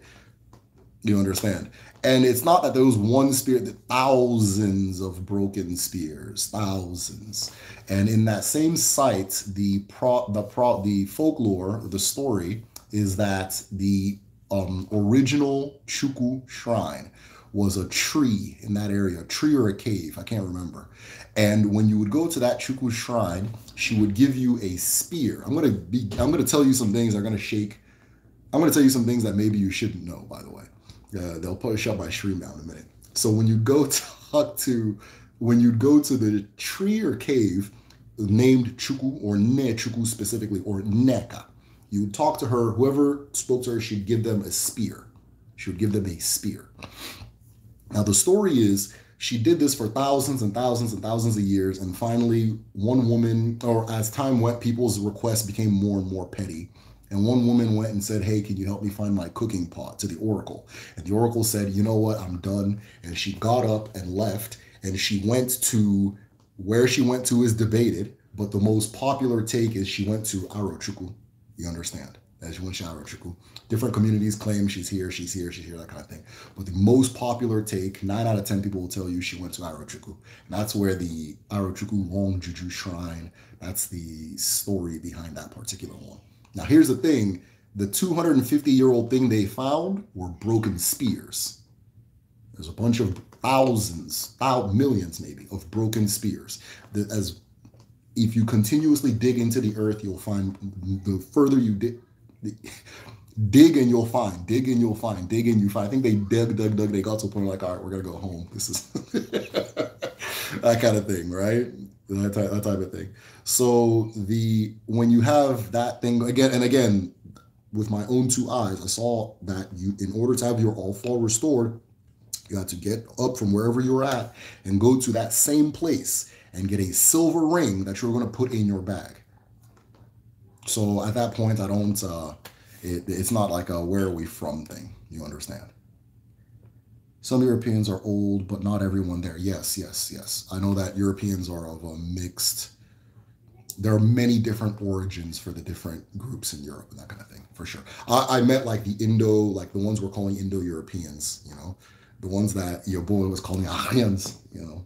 you understand. And it's not that there was one spear, that thousands of broken spears, thousands. And in that same site, the pro, the pro, the folklore, the story is that the um, original Chuku shrine was a tree in that area, a tree or a cave, I can't remember. And when you would go to that Chuku shrine, she would give you a spear. I'm gonna be, I'm gonna tell you some things that are gonna shake. I'm gonna tell you some things that maybe you shouldn't know, by the way. Uh, they'll probably out my tree now in a minute. So when you go talk to, when you go to the tree or cave named Chuku or Ne Chuku specifically, or Neka, you talk to her, whoever spoke to her she'd give them a spear. She would give them a spear. Now the story is she did this for thousands and thousands and thousands of years, and finally one woman, or as time went, people's requests became more and more petty and one woman went and said, Hey, can you help me find my cooking pot to the oracle? And the oracle said, You know what? I'm done. And she got up and left. And she went to where she went to is debated, but the most popular take is she went to Arochuku. You understand? As she went to Arochuku. Different communities claim she's here, she's here, she's here, that kind of thing. But the most popular take, nine out of 10 people will tell you she went to Arochuku. And that's where the Arochuku Long Juju Shrine, that's the story behind that particular one. Now, here's the thing the 250 year old thing they found were broken spears. There's a bunch of thousands, thousands millions maybe, of broken spears. That as if you continuously dig into the earth, you'll find the further you dig, dig and you'll find, dig and you'll find, dig and you find. I think they dug, dug, dug. They got to a point like, all right, we're gonna go home. This is that kind of thing, right? That type, that type of thing. So the when you have that thing again and again, with my own two eyes, I saw that you in order to have your all fall restored, you had to get up from wherever you were at and go to that same place and get a silver ring that you're going to put in your bag. So at that point, I don't. Uh, it, it's not like a where are we from thing. You understand? Some Europeans are old, but not everyone there. Yes, yes, yes. I know that Europeans are of a mixed there are many different origins for the different groups in Europe and that kind of thing, for sure. I, I met like the Indo, like the ones we're calling Indo Europeans, you know, the ones that your boy was calling Aryans, you know.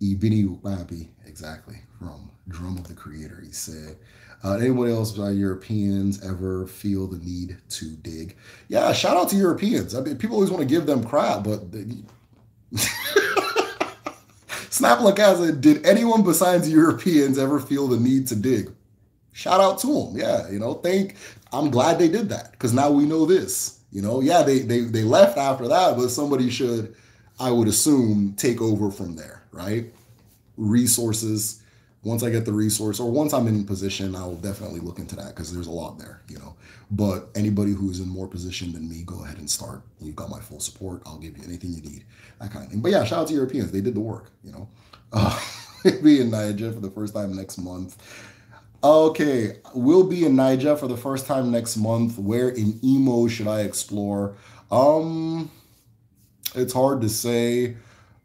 Ibini Ubabi, exactly, from Drum of the Creator. He said, uh, anyone else uh, Europeans ever feel the need to dig? Yeah, shout out to Europeans. I mean, people always want to give them crap, but. They... Snap! Snaplakaza, did anyone besides Europeans ever feel the need to dig? Shout out to them. Yeah, you know, thank. I'm glad they did that because now we know this. You know, yeah, they they they left after that, but somebody should, I would assume, take over from there, right? Resources, once I get the resource or once I'm in position, I'll definitely look into that because there's a lot there, you know. But anybody who's in more position than me, go ahead and start. You've got my full support. I'll give you anything you need, that kind of thing. But yeah, shout out to Europeans. They did the work, you know. Uh, be in Niger for the first time next month. Okay, we'll be in Niger for the first time next month. Where in Emo should I explore? Um, it's hard to say.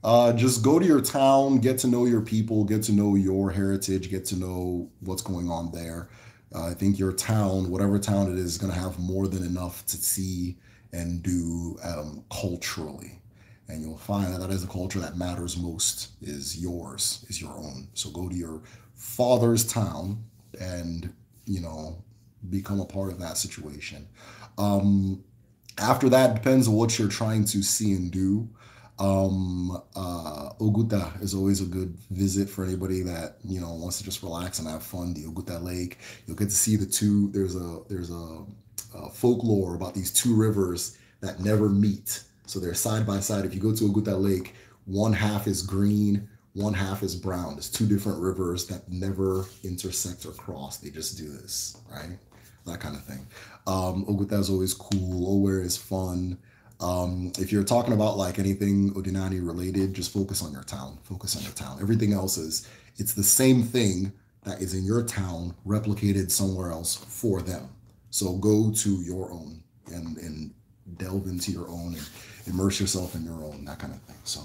Uh, just go to your town, get to know your people, get to know your heritage, get to know what's going on there. Uh, I think your town, whatever town it is, is going to have more than enough to see and do um, culturally. And you'll find that that is the culture that matters most is yours, is your own. So go to your father's town and, you know, become a part of that situation. Um, after that, depends on what you're trying to see and do. Um, uh, Oguta is always a good visit for anybody that you know wants to just relax and have fun. The Oguta Lake, you'll get to see the two. There's a there's a, a folklore about these two rivers that never meet, so they're side by side. If you go to Oguta Lake, one half is green, one half is brown. It's two different rivers that never intersect or cross. They just do this, right? That kind of thing. Um, Oguta is always cool. Ower is fun. Um, if you're talking about like anything Odinani related, just focus on your town. Focus on your town. Everything else is it's the same thing that is in your town replicated somewhere else for them. So go to your own and and delve into your own and immerse yourself in your own, that kind of thing. So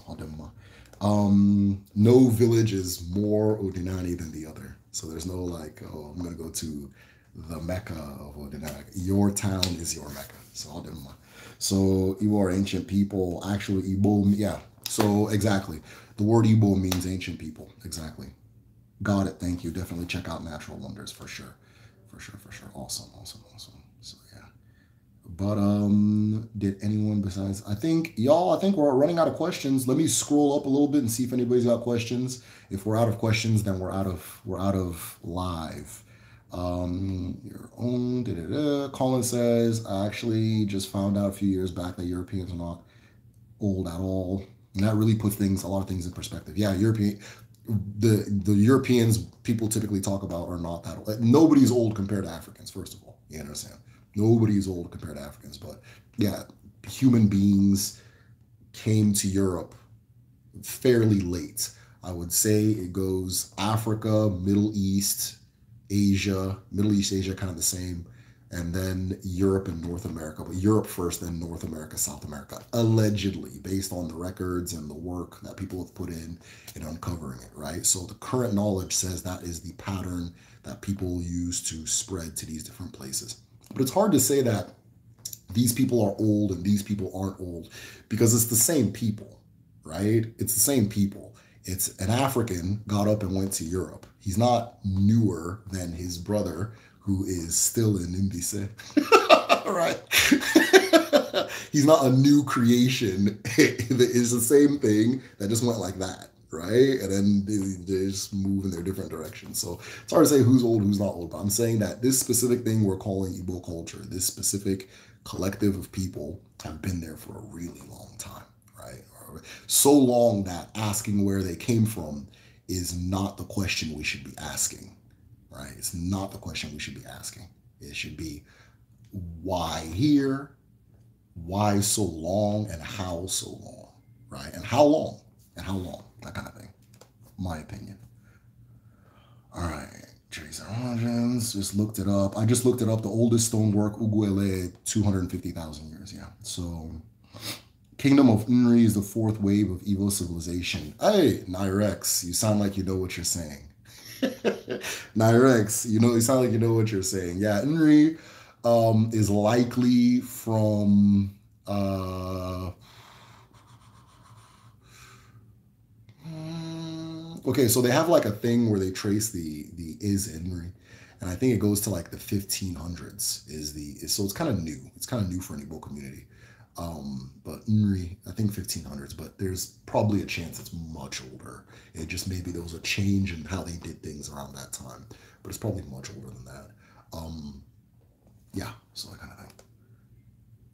Um, no village is more Odinani than the other. So there's no like, oh, I'm gonna go to the Mecca of Odinani. Your town is your Mecca. So Odema. So Igbo are ancient people. Actually, Igbo, yeah. So exactly. The word Igbo means ancient people. Exactly. Got it. Thank you. Definitely check out Natural Wonders for sure. For sure, for sure. Awesome, awesome, awesome. So yeah. But um, did anyone besides I think y'all, I think we're running out of questions. Let me scroll up a little bit and see if anybody's got questions. If we're out of questions, then we're out of we're out of live. Um, your own. Da, da, da. Colin says, I actually just found out a few years back that Europeans are not old at all. And that really puts things, a lot of things in perspective. Yeah, European, the the Europeans people typically talk about are not that old. nobody's old compared to Africans, first of all. You understand? Nobody's old compared to Africans, but yeah, human beings came to Europe fairly late. I would say it goes Africa, Middle East, Asia, Middle East Asia, kind of the same, and then Europe and North America. But Europe first, then North America, South America, allegedly, based on the records and the work that people have put in in uncovering it, right? So the current knowledge says that is the pattern that people use to spread to these different places. But it's hard to say that these people are old and these people aren't old because it's the same people, right? It's the same people. It's an African got up and went to Europe He's not newer than his brother, who is still in Imbise. right? He's not a new creation. it's the same thing that just went like that, right? And then they, they, just move in their different directions. So it's hard to say who's old, who's not old. But I'm saying that this specific thing we're calling Igbo culture, this specific collective of people have been there for a really long time, right? So long that asking where they came from is not the question we should be asking, right? It's not the question we should be asking. It should be why here, why so long, and how so long, right? And how long, and how long, that kind of thing. My opinion. All right, Tracer Origins, just looked it up. I just looked it up. The oldest stonework, Uguele, 250,000 years, yeah. So Kingdom of Unri is the fourth wave of evil civilization. Hey, Nyrex, you sound like you know what you're saying. Nyrex, you know, you sound like you know what you're saying. Yeah, Unri um, is likely from uh, okay so they have like a thing where they trace the the is Henry and I think it goes to like the 1500s is the is, so it's kind of new it's kind of new for an Igbo community um, but Nri, I think 1500s, but there's probably a chance it's much older. It just maybe there was a change in how they did things around that time, but it's probably much older than that. Um, yeah, so I kind of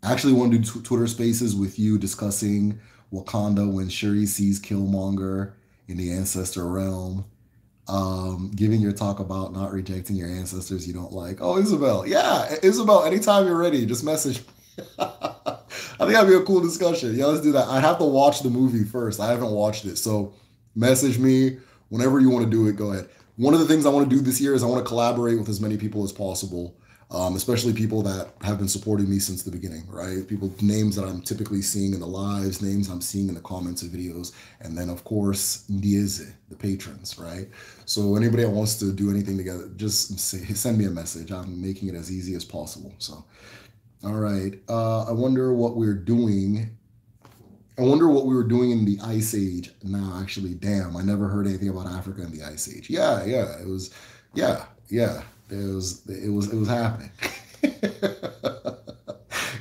I actually want to do Twitter spaces with you discussing Wakanda when Shuri sees Killmonger in the ancestor realm. Um, giving your talk about not rejecting your ancestors you don't like. Oh, Isabel. Yeah, Isabel, anytime you're ready, just message I think that'd be a cool discussion. Yeah, let's do that. I'd have to watch the movie first. I haven't watched it. So message me whenever you want to do it. Go ahead. One of the things I want to do this year is I want to collaborate with as many people as possible, um, especially people that have been supporting me since the beginning, right? People, names that I'm typically seeing in the lives, names I'm seeing in the comments of videos. And then, of course, Ndieze, the patrons, right? So anybody that wants to do anything together, just say, send me a message. I'm making it as easy as possible. So all right. Uh, I wonder what we're doing. I wonder what we were doing in the Ice Age. Nah, actually, damn, I never heard anything about Africa in the Ice Age. Yeah, yeah, it was, yeah, yeah, it was, it was, it was happening.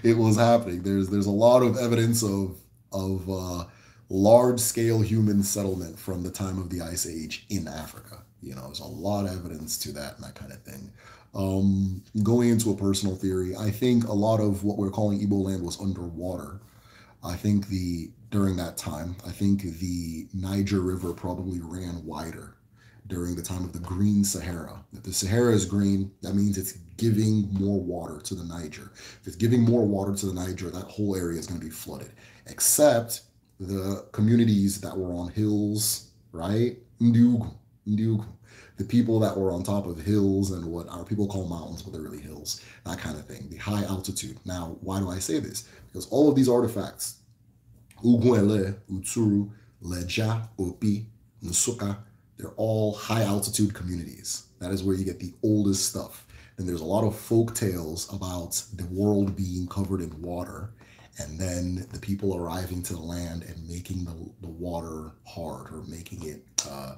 it was happening. There's, there's a lot of evidence of, of uh, large scale human settlement from the time of the Ice Age in Africa. You know, there's a lot of evidence to that and that kind of thing. Um, going into a personal theory, I think a lot of what we're calling Ebola land was underwater. I think the during that time, I think the Niger River probably ran wider during the time of the Green Sahara. If the Sahara is green, that means it's giving more water to the Niger. If it's giving more water to the Niger, that whole area is going to be flooded, except the communities that were on hills, right? Ndiugu, Ndiugu the people that were on top of hills and what our people call mountains, but they're really hills, that kind of thing, the high altitude. Now, why do I say this? Because all of these artifacts, Uguele, Utsuru, Leja, Opi, Nusuka, they're all high altitude communities. That is where you get the oldest stuff. And there's a lot of folk tales about the world being covered in water and then the people arriving to the land and making the, the water hard or making it uh,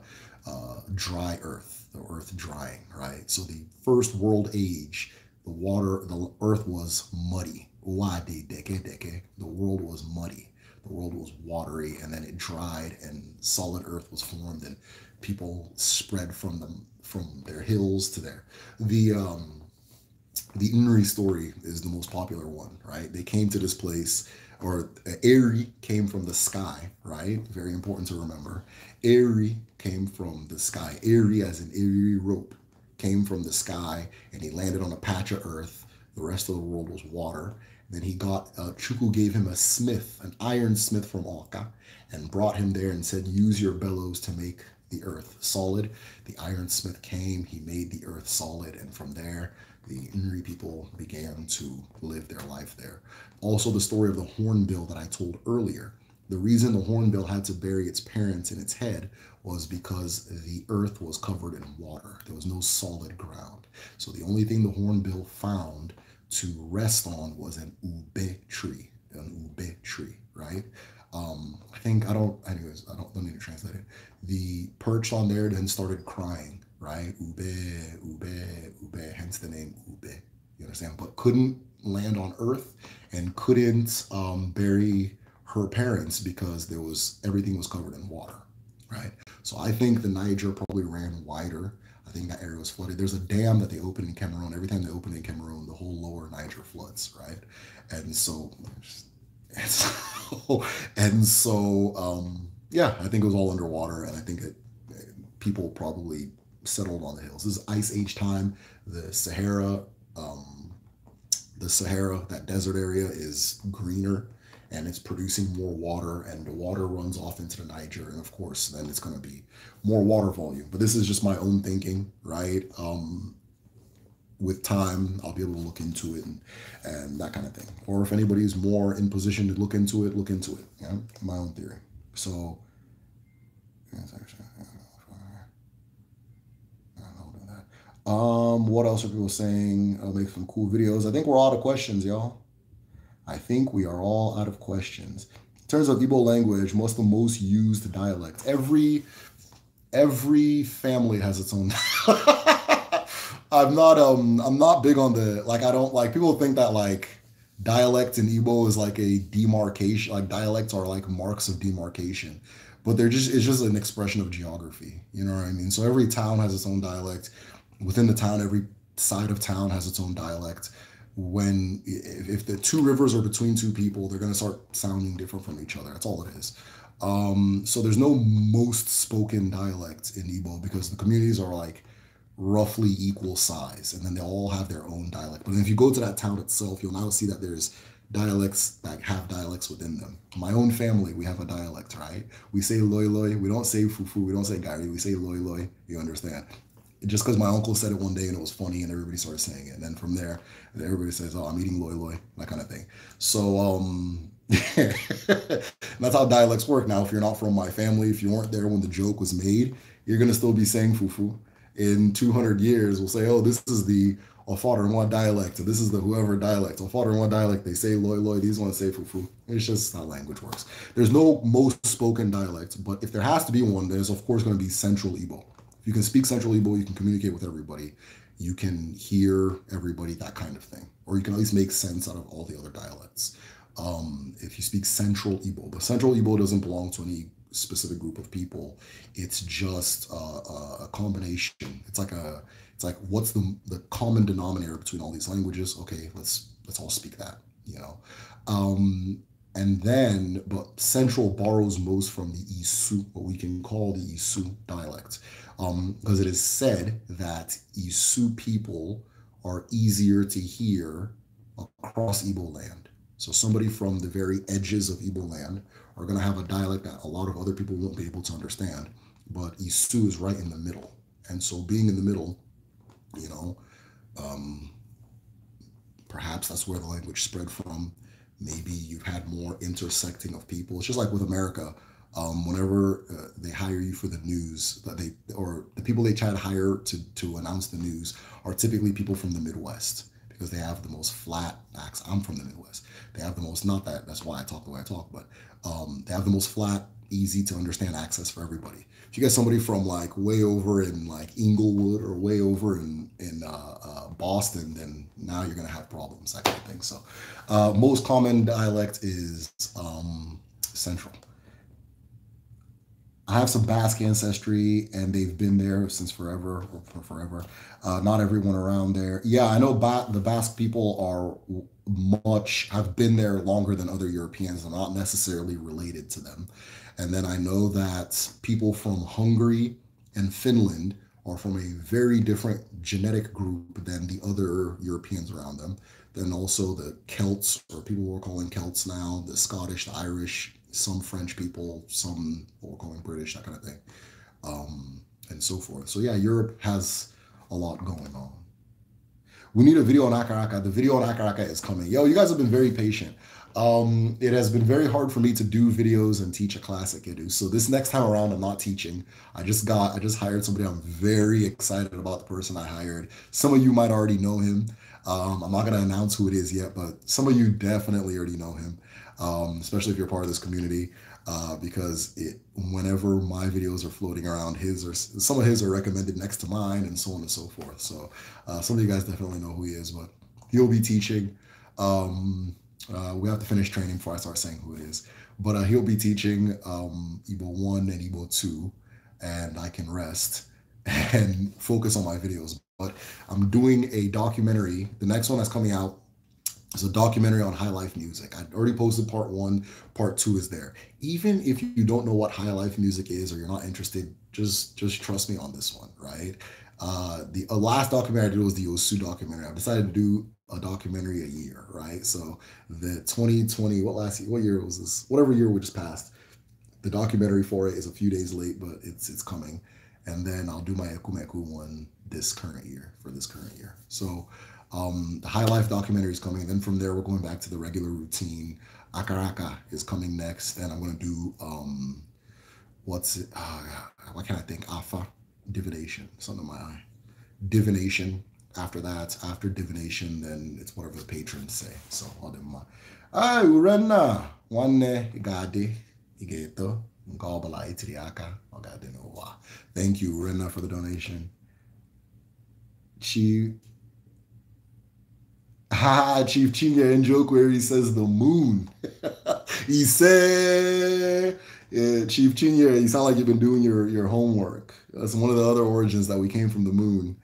uh, dry earth, the earth drying, right? So the first world age, the water, the earth was muddy. The world was muddy. The world was watery, and then it dried, and solid earth was formed, and people spread from them from their hills to their the um the Inri story is the most popular one, right? They came to this place, or Eri came from the sky, right? Very important to remember. Airy came from the sky. Airy, as an airy rope, came from the sky, and he landed on a patch of earth. The rest of the world was water. Then he got uh, Chuku gave him a smith, an iron smith from Oka, and brought him there and said, "Use your bellows to make the earth solid." The iron smith came. He made the earth solid, and from there, the Inri people began to live their life there. Also, the story of the hornbill that I told earlier the reason the hornbill had to bury its parents in its head was because the earth was covered in water. There was no solid ground. So the only thing the hornbill found to rest on was an ube tree, an ube tree, right? Um, I think I don't. Anyways, I don't, don't need to translate it. The perch on there then started crying, right? Ube, ube, ube. Hence the name ube. You understand? But couldn't land on Earth and couldn't um, bury her parents because there was everything was covered in water, right? So I think the Niger probably ran wider. I think that area was flooded. There's a dam that they opened in Cameroon. Every time they open in Cameroon, the whole lower Niger floods, right? And so, and so, and so um, yeah, I think it was all underwater, and I think it, people probably settled on the hills. This is Ice Age time. The Sahara, um, the Sahara, that desert area is greener and it's producing more water and the water runs off into the niger and of course then it's going to be more water volume but this is just my own thinking right um, with time i'll be able to look into it and, and that kind of thing or if anybody's more in position to look into it look into it yeah my own theory so um what else are people saying i'll make some cool videos i think we're out of questions y'all I think we are all out of questions. In terms of Igbo language, Most the most used dialect? Every every family has its own. I'm not um I'm not big on the like I don't like people think that like dialect in Igbo is like a demarcation like dialects are like marks of demarcation but they're just it's just an expression of geography you know what I mean so every town has its own dialect within the town every side of town has its own dialect when if, the two rivers are between two people, they're going to start sounding different from each other. That's all it is. Um, so there's no most spoken dialects in Igbo because the communities are like roughly equal size, and then they all have their own dialect. But if you go to that town itself, you'll now see that there's dialects that have dialects within them. My own family, we have a dialect, right? We say loy loy. We don't say fufu. We don't say gari. We say loy loy. You understand? just because my uncle said it one day and it was funny and everybody started saying it. And then from there, everybody says, oh, I'm eating loy loy, that kind of thing. So um, that's how dialects work now. If you're not from my family, if you weren't there when the joke was made, you're going to still be saying fufu. In 200 years, we'll say, oh, this is the Ofarinwa dialect. This is the whoever dialect. Ofarinwa dialect, they say loy loy, these ones say fufu. It's just how language works. There's no most spoken dialect, but if there has to be one, there's of course going to be Central Igbo you can speak central Igbo, you can communicate with everybody, you can hear everybody, that kind of thing. Or you can at least make sense out of all the other dialects. Um, if you speak central Igbo, but central Igbo doesn't belong to any specific group of people. It's just a, uh, uh, a combination. It's like a, it's like what's the, the common denominator between all these languages? Okay, let's let's all speak that, you know. Um, and then, but Central borrows most from the Isu, what we can call the Isu dialect um, because it is said that Isu people are easier to hear across Igbo land. So somebody from the very edges of Igbo land are going to have a dialect that a lot of other people won't be able to understand. But Isu is right in the middle, and so being in the middle, you know, um, perhaps that's where the language spread from. Maybe you've had more intersecting of people. It's just like with America um, whenever uh, they hire you for the news that they or the people they try to hire to to announce the news are typically people from the Midwest because they have the most flat accent. I'm from the Midwest. They have the most not that that's why I talk the way I talk, but um, they have the most flat, easy to understand access for everybody. If you get somebody from like way over in like Inglewood or way over in in uh, uh, Boston, then now you're gonna have problems. I kind of think so. Uh, most common dialect is um, Central. I have some Basque ancestry, and they've been there since forever, for forever. Uh, not everyone around there. Yeah, I know ba the Basque people are much have been there longer than other Europeans. i not necessarily related to them. And then I know that people from Hungary and Finland are from a very different genetic group than the other Europeans around them. Then also the Celts, or people we're calling Celts now, the Scottish, the Irish, some French people, some or going British, that kind of thing, um, and so forth. So yeah, Europe has a lot going on. We need a video on Akaraka. The video on Akaraka is coming. Yo, you guys have been very patient. Um, it has been very hard for me to do videos and teach a class at So this next time around, I'm not teaching. I just got, I just hired somebody. I'm very excited about the person I hired. Some of you might already know him. Um, I'm not going to announce who it is yet, but some of you definitely already know him um, especially if you're part of this community, uh, because it, whenever my videos are floating around, his or some of his are recommended next to mine, and so on and so forth. So uh, some of you guys definitely know who he is, but he'll be teaching. Um, uh, we have to finish training before I start saying who it is, but uh, he'll be teaching um, Igbo one and Evil two, and I can rest and focus on my videos. But I'm doing a documentary. The next one that's coming out it's a documentary on High Life Music. I already posted part one. Part two is there. Even if you don't know what High Life Music is or you're not interested, just just trust me on this one, right? Uh, the uh, last documentary I did was the Osu documentary. I've decided to do a documentary a year, right? So the 2020, what last year, what year was this? Whatever year we just passed. The documentary for it is a few days late, but it's it's coming. And then I'll do my Ekumeku one this current year for this current year. So um, the High Life documentary is coming. And then from there, we're going back to the regular routine. Akaraka is coming next. and I'm going to do um, what's it? Uh, can I think? Afa, divination. Something under my eye. Divination. After that, after divination, then it's whatever the patrons say. So, all them. Ah, Urena. one Igadi, Igeto, Ngobala, Itiriaka, Thank you, Urenna, for the donation. She Chief Chinga, in joke where he says the moon. he said, yeah, uh, Chief Chinga, you sound like you've been doing your, your homework. That's one of the other origins that we came from the moon.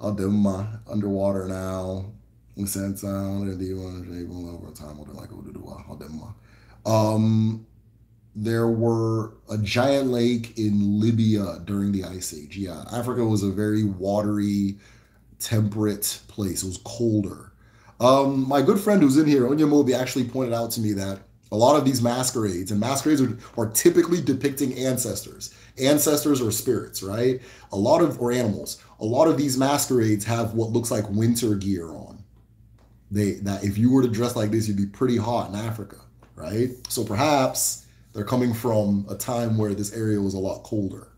Adema, underwater now. We sent down and the over time. like Adema. Um, there were a giant lake in Libya during the Ice Age. Yeah, Africa was a very watery, temperate place. It was colder. Um, my good friend who's in here, Onyamobi, actually pointed out to me that a lot of these masquerades and masquerades are, are typically depicting ancestors, ancestors or spirits, right? A lot of, or animals, a lot of these masquerades have what looks like winter gear on. They, that if you were to dress like this, you'd be pretty hot in Africa, right? So perhaps they're coming from a time where this area was a lot colder.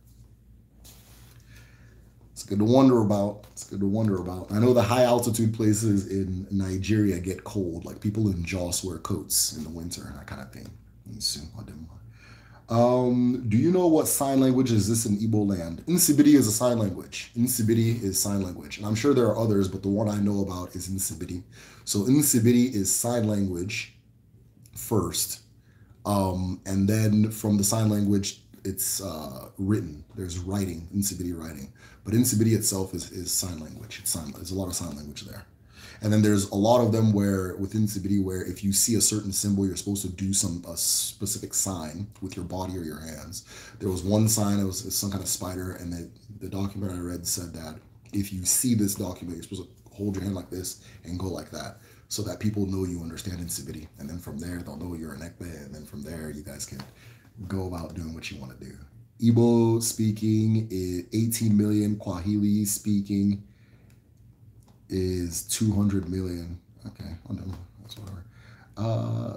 It's good to wonder about. It's good to wonder about. I know the high altitude places in Nigeria get cold. Like people in Joss wear coats in the winter and that kind of thing. Um, do you know what sign language is this in Igbo land? Nsibidi is a sign language. Nsibidi is sign language. And I'm sure there are others, but the one I know about is Nsibidi. So Nsibidi is sign language first. Um, and then from the sign language, it's uh, written. There's writing, Nsibidi writing, but Nsibidi itself is, is sign language. It's sign. There's a lot of sign language there, and then there's a lot of them where within Nsibidi, where if you see a certain symbol, you're supposed to do some a specific sign with your body or your hands. There was one sign. It was, it was some kind of spider, and the the document I read said that if you see this document, you're supposed to hold your hand like this and go like that so that people know you understand Nsibidi. And then from there, they'll know you're an Ekbe. And then from there, you guys can go about doing what you want to do. Igbo speaking is 18 million. Kwahili speaking is 200 million. Okay, That's whatever. Uh,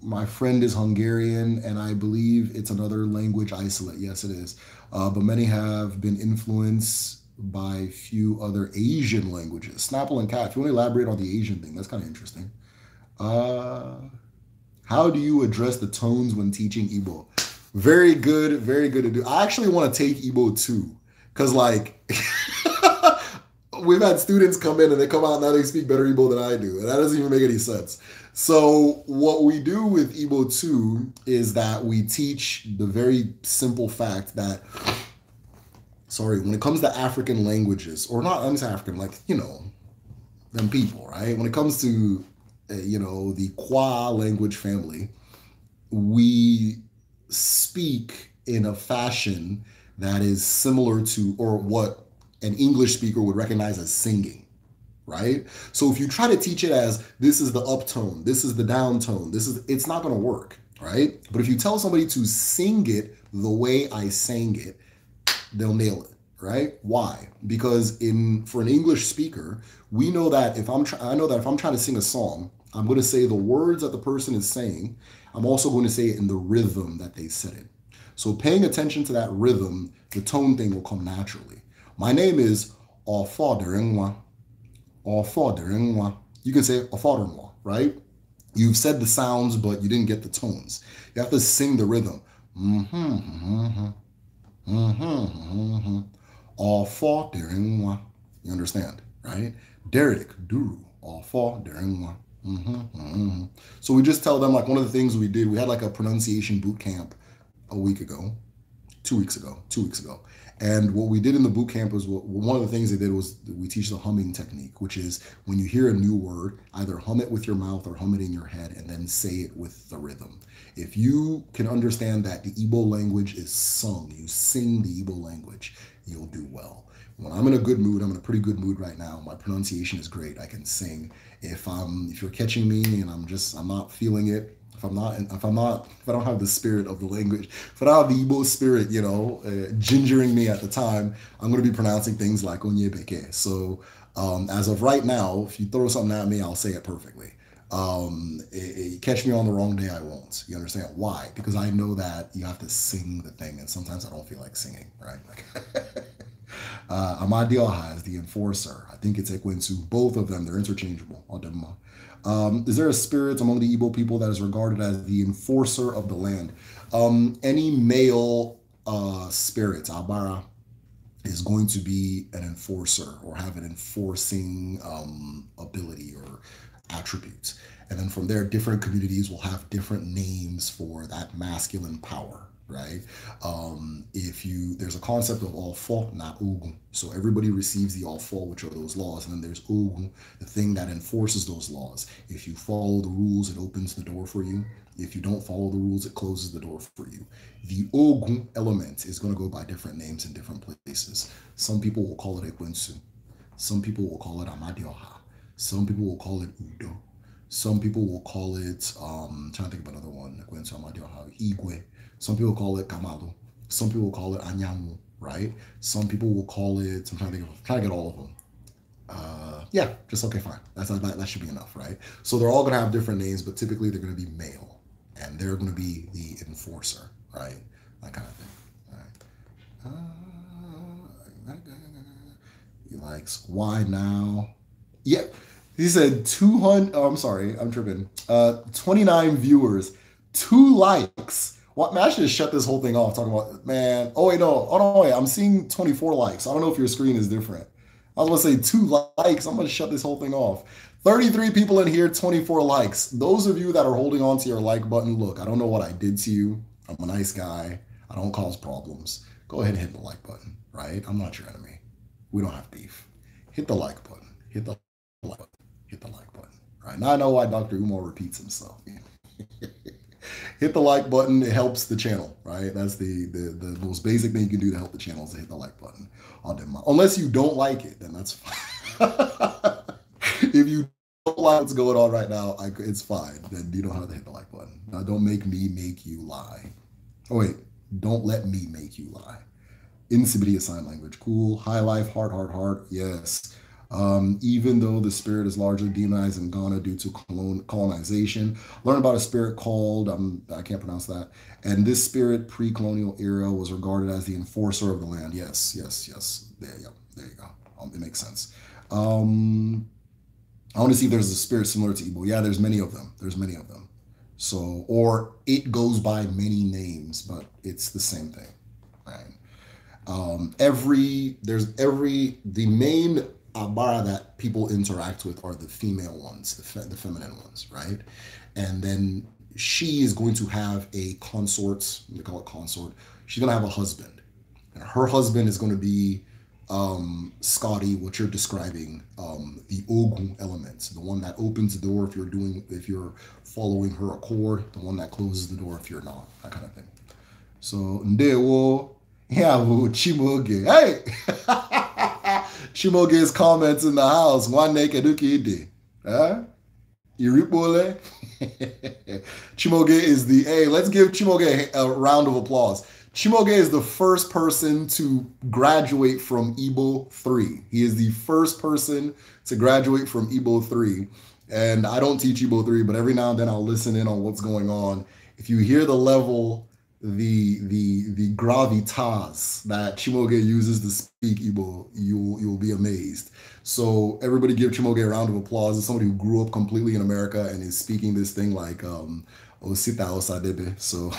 my friend is Hungarian, and I believe it's another language isolate. Yes, it is. Uh, but many have been influenced by few other Asian languages. Snapple and Cat. If you want to elaborate on the Asian thing, that's kind of interesting. Uh, how do you address the tones when teaching Igbo? Very good, very good to do. I actually want to take Igbo too, because like we've had students come in and they come out now they speak better Igbo than I do, and that doesn't even make any sense. So what we do with Igbo too is that we teach the very simple fact that sorry, when it comes to African languages, or not I'm African, like, you know, them people, right? When it comes to uh, you know, the Kwa language family, we speak in a fashion that is similar to or what an English speaker would recognize as singing, right? So if you try to teach it as this is the uptone, this is the downtone, this is it's not going to work, right? But if you tell somebody to sing it the way I sang it, they'll nail it right? Why? Because in for an English speaker, we know that if I'm try, I know that if I'm trying to sing a song, I'm going to say the words that the person is saying. I'm also going to say it in the rhythm that they said it. So paying attention to that rhythm, the tone thing will come naturally. My name is father-in-law. You can say father-in-law, right? You've said the sounds, but you didn't get the tones. You have to sing the rhythm. Mm-hmm, mm-hmm, mm-hmm, mm-hmm. mm-hmm four during one. You understand, right? Derek, Duru, All four during Mm-hmm, mm-hmm. So we just tell them like one of the things we did, we had like a pronunciation boot camp a week ago, two weeks ago, two weeks ago. And what we did in the boot camp was one of the things they did was we teach the humming technique, which is when you hear a new word, either hum it with your mouth or hum it in your head and then say it with the rhythm. If you can understand that the Igbo language is sung, you sing the Igbo language you'll do well. When I'm in a good mood, I'm in a pretty good mood right now. My pronunciation is great. I can sing. If I'm if you're catching me and I'm just I'm not feeling it, if I'm not if I'm not if I don't have the spirit of the language, if I don't have the Igbo spirit, you know, uh, gingering me at the time, I'm going to be pronouncing things like onyebeke. So um, as of right now, if you throw something at me, I'll say it perfectly. Um, it, it, catch me on the wrong day, I won't. You understand why? Because I know that you have to sing the thing, and sometimes I don't feel like singing, right? Like, uh, Amadioha is the enforcer. I think it's Ekwensu. Both of them, they're interchangeable. Um, is there a spirit among the Igbo people that is regarded as the enforcer of the land? Um, any male uh, spirit, Abara, is going to be an enforcer or have an enforcing um, ability or attributes. And then from there, different communities will have different names for that masculine power, right? Um, if you, there's a concept of all alfa, not ugun. So everybody receives the all alfa, which are those laws. And then there's ugun, the thing that enforces those laws. If you follow the rules, it opens the door for you. If you don't follow the rules, it closes the door for you. The ogun element is going to go by different names in different places. Some people will call it ekwensu. Some people will call it amadioha some people will call it Udo. Some people will call it, um, I'm trying to think of another one, Igwe. Some people call it Kamalu. Some people call it Anyamu, right? Some people will call it, I'm trying to, think of, trying to get all of them. Uh, yeah, just okay, fine. That's that, that should be enough, right? So they're all going to have different names, but typically they're going to be male and they're going to be the enforcer, right? That kind of thing. All right. Uh, he likes why now yep he said 200. Oh, I'm sorry, I'm tripping. Uh, 29 viewers, two likes. What Mash just shut this whole thing off talking about, man. Oh, wait, no. Oh, no, wait. I'm seeing 24 likes. I don't know if your screen is different. I was going to say two likes. I'm going to shut this whole thing off. 33 people in here, 24 likes. Those of you that are holding on to your like button, look, I don't know what I did to you. I'm a nice guy. I don't cause problems. Go ahead and hit the like button, right? I'm not your enemy. We don't have beef. Hit the like button. Hit the like button hit the like button. Right now, I know why Dr. Umar repeats himself. hit the like button; it helps the channel. Right, that's the, the the most basic thing you can do to help the channel is to hit the like button. Unless you don't like it, then that's fine. if you don't like what's going on right now, I, it's fine. Then you don't have to hit the like button. Now, don't make me make you lie. Oh wait, don't let me make you lie. Incivility sign language, cool. High life, hard, hard, hard. Yes um, even though the spirit is largely demonized in Ghana due to colon- colonization. Learn about a spirit called, um, I can't pronounce that. And this spirit, pre colonial era, was regarded as the enforcer of the land. Yes, yes, yes. There you go. There you go. Um, it makes sense. Um, I want to see if there's a spirit similar to Igbo. Yeah, there's many of them. There's many of them. So, or it goes by many names, but it's the same thing. Right? Um, every, there's every, the main abara that people interact with are the female ones, the, fe- the feminine ones, right? And then she is going to have a consort, they call it consort. She's going to have a husband. And her husband is going to be um, Scotty, what you're describing, um, the Ogun element, the one that opens the door if you're doing, if you're following her accord, the one that closes the door if you're not, that kind of thing. So, ndewo, yeah, chiboge, hey! Chimoge's comments in the house. One naked ide. Huh? Iripole. Eh? Chimoge is the, hey, let's give Chimoge a round of applause. Chimoge is the first person to graduate from Ebo 3. He is the first person to graduate from Ebo 3. And I don't teach Ebo 3, but every now and then I'll listen in on what's going on. If you hear the level the the the gravitas that Chimoge uses to speak Igbo, you you'll be amazed. So everybody give Chimoge a round of applause. As somebody who grew up completely in America and is speaking this thing like um Osita Osadebe. So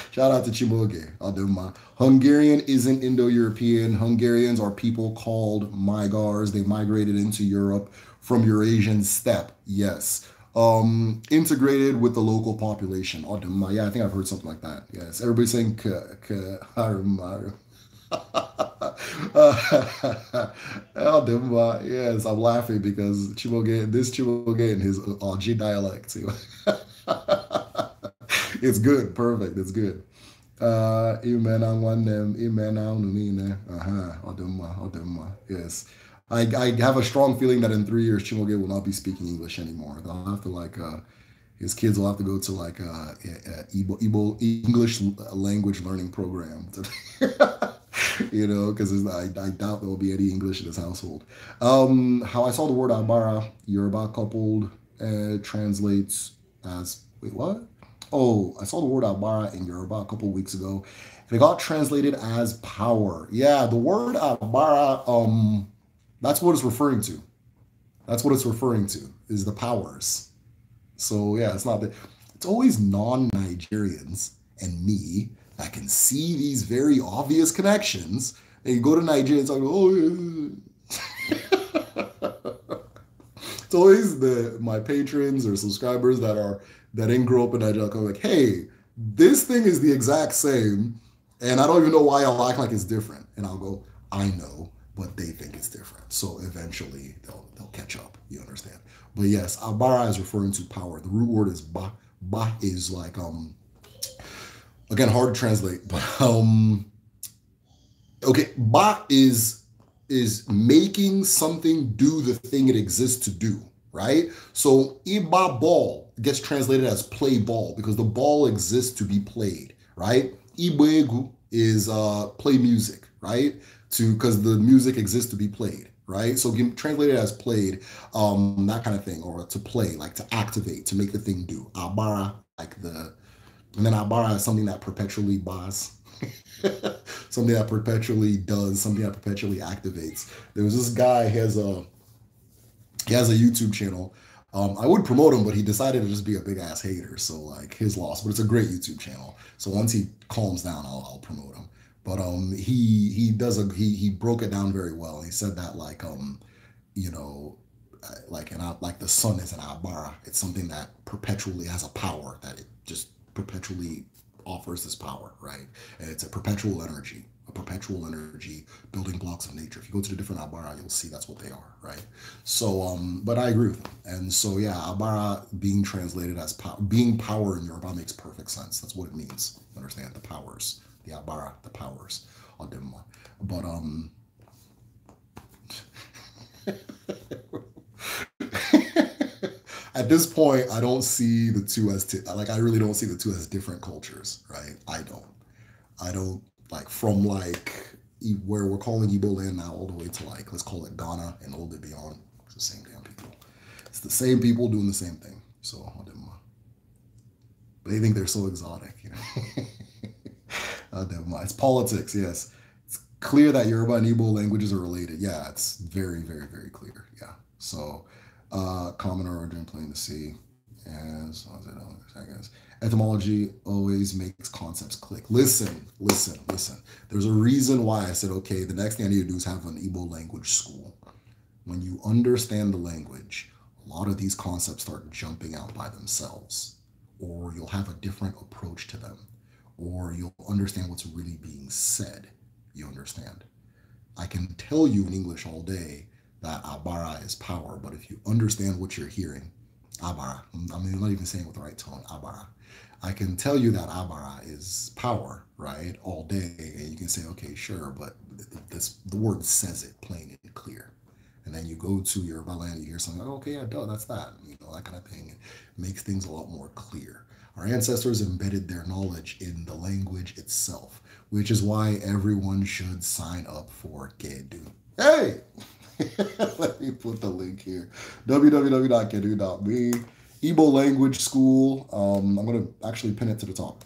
shout out to Chimoge Adema. Hungarian isn't Indo-European. Hungarians are people called Migars. They migrated into Europe from Eurasian steppe. Yes um, integrated with the local population. Oduma, oh, yeah, I think I've heard something like that. Yes, everybody's saying Karumaru. Oduma, oh, uh, yes, I'm laughing because Chiboge, this Chiboge in his Oji uh, dialect. it's good, perfect, it's good. Uh, amen one name, amen on the Uh huh, Oduma, Oduma, yes. I, I have a strong feeling that in three years Chimoge will not be speaking English anymore. They'll have to like uh, his kids will have to go to like a, uh, Igbo, English language learning program. To, you know, because I, I doubt there will be any English in this household. Um, how I saw the word Abara, Yoruba coupled, uh, translates as wait what? Oh, I saw the word Abara in Yoruba a couple weeks ago, and it got translated as power. Yeah, the word Abara um that's what it's referring to. That's what it's referring to is the powers. So yeah, it's not that it's always non-Nigerians and me that can see these very obvious connections. And go to Nigeria and talk, oh yeah. it's always the my patrons or subscribers that are that didn't grow up in Nigeria go like, hey, this thing is the exact same, and I don't even know why I'll act like it's different. And I'll go, I know but they think it's different. So eventually they'll they'll catch up. You understand? But yes, abara is referring to power. The root word is ba. Ba is like um again hard to translate, but um okay, ba is is making something do the thing it exists to do, right? So iba ball gets translated as play ball because the ball exists to be played, right? Ibegu is uh play music, right? to because the music exists to be played right so translated as played um that kind of thing or to play like to activate to make the thing do abara like the and then abara is something that perpetually bars something that perpetually does something that perpetually activates there was this guy he has a he has a youtube channel um, I would promote him, but he decided to just be a big ass hater. So like his loss, but it's a great YouTube channel. So once he calms down, I'll, I'll promote him. But um, he he does a he he broke it down very well. He said that like um, you know, uh, like an uh, like the sun is an abara. It's something that perpetually has a power that it just perpetually offers this power, right? And it's a perpetual energy, a perpetual energy building blocks of nature. If you go to the different abara, you'll see that's what they are, right? So, um, but I agree with them. And so, yeah, abara being translated as power, being power in Yoruba makes perfect sense. That's what it means. Understand the powers the Abara, the powers of them. But um at this point, I don't see the two as t- like I really don't see the two as different cultures, right? I don't. I don't like from like where we're calling Ebo land now all the way to like let's call it Ghana and all the beyond. It's the same damn people. It's the same people doing the same thing. So but they think they're so exotic, you know. Uh, never mind. It's politics. Yes, it's clear that Yoruba and Igbo languages are related. Yeah, it's very, very, very clear. Yeah. So, uh, common origin, plain to see. As I guess etymology always makes concepts click. Listen, listen, listen. There's a reason why I said, okay, the next thing I need to do is have an Igbo language school. When you understand the language, a lot of these concepts start jumping out by themselves, or you'll have a different approach to them or you'll understand what's really being said. You understand? I can tell you in English all day that abara is power, but if you understand what you're hearing, abara, I mean, I'm not even saying it with the right tone, abara. I can tell you that abara is power, right, all day, and you can say, okay, sure, but this the word says it plain and clear. And then you go to your Yoruba you hear something, like, okay, yeah, duh, that's that, you know, that kind of thing. It makes things a lot more clear. Our ancestors embedded their knowledge in the language itself, which is why everyone should sign up for Kedu. Hey! Let me put the link here www.kedu.me, Igbo Language School. Um, I'm going to actually pin it to the top.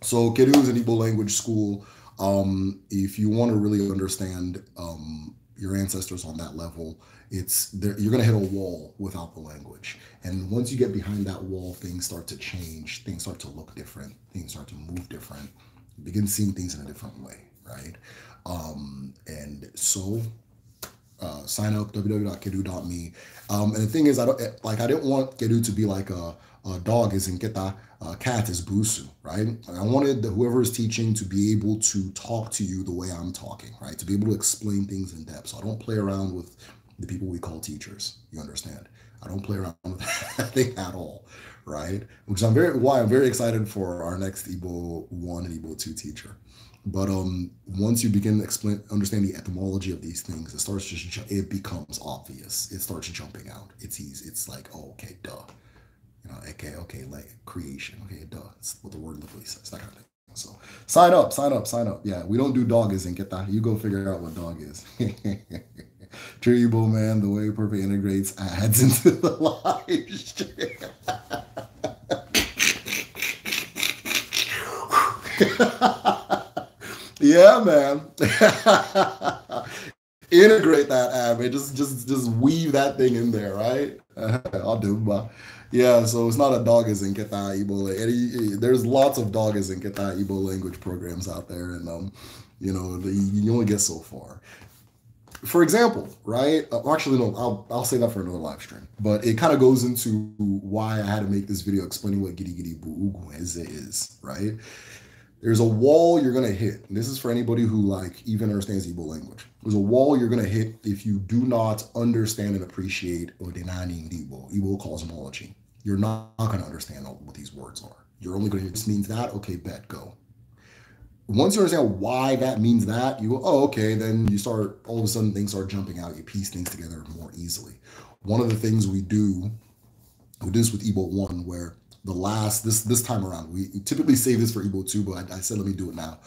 So, Kedu is an Igbo language school. Um, if you want to really understand um, your ancestors on that level, it's there, you're going to hit a wall without the language. And once you get behind that wall, things start to change. Things start to look different. Things start to move different. You begin seeing things in a different way, right? Um, and so uh, sign up www.kedu.me. Um, and the thing is, I don't eh, like I didn't want Kedu to be like a, a dog is in Keta, a uh, cat is Busu, right? I wanted whoever is teaching to be able to talk to you the way I'm talking, right? To be able to explain things in depth. So I don't play around with the people we call teachers. You understand? I don't play around with that thing at all, right? Which I'm very why I'm very excited for our next Ebo one and Ebo two teacher. But um, once you begin to explain, understand the etymology of these things, it starts just it becomes obvious. It starts jumping out. It's easy. It's like, oh, okay, duh. You know, okay, okay, like creation. Okay, duh. It's what the word literally says. That kind of thing. So sign up, sign up, sign up. Yeah, we don't do dog is and get that. You go figure out what dog is. Jerry man. the way Purple integrates ads into the live stream. yeah, man. Integrate that ad, man. Just, just, just weave that thing in there, right? I'll do, but yeah. So it's not a dog is in Keta Ibo. There's lots of dog is in Keta Ibo language programs out there, and um, you know, the, you only get so far for example, right? Uh, actually, no, I'll, I'll say that for another live stream. But it kind of goes into why I had to make this video explaining what "giddy giddy Buuguenze is, right? There's a wall you're gonna hit. this is for anybody who like even understands Igbo language. There's a wall you're gonna hit if you do not understand and appreciate Odinani Igbo, Igbo cosmology. You're not gonna understand what these words are. You're only gonna just means that, okay, bet, go once you understand why that means that, you go, oh, okay, then you start, all of a sudden things start jumping out. You piece things together more easily. One of the things we do, we do this with Ebo 1, where the last, this this time around, we typically save this for Ebo 2, but I, I said, let me do it now.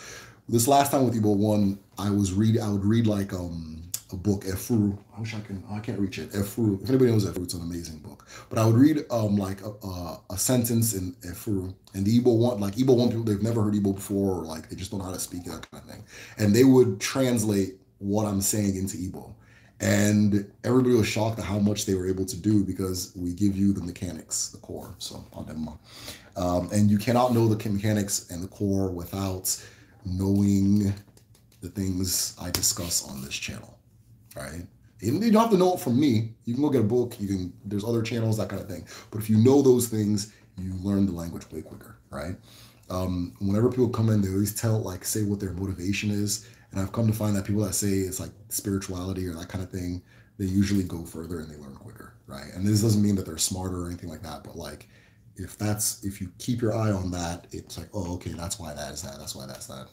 This last time with Ebo 1, I was read, I would read like, um, a book, Efuru. I wish I can, I can't reach it. Efuru. If anybody knows Efuru, it's an amazing book. But I would read um like a, a, a sentence in Efuru, and the Igbo want like Igbo want people they've never heard Igbo before, or like they just don't know how to speak that kind of thing, and they would translate what I'm saying into Igbo. And everybody was shocked at how much they were able to do because we give you the mechanics, the core. So, um, and you cannot know the mechanics and the core without knowing the things I discuss on this channel right? you don't have to know it from me. You can go get a book. You can. There's other channels, that kind of thing. But if you know those things, you learn the language way quicker, right? Um, whenever people come in, they always tell like say what their motivation is, and I've come to find that people that say it's like spirituality or that kind of thing, they usually go further and they learn quicker, right? And this doesn't mean that they're smarter or anything like that, but like if that's if you keep your eye on that, it's like oh okay, that's why that is that, that's why that's that.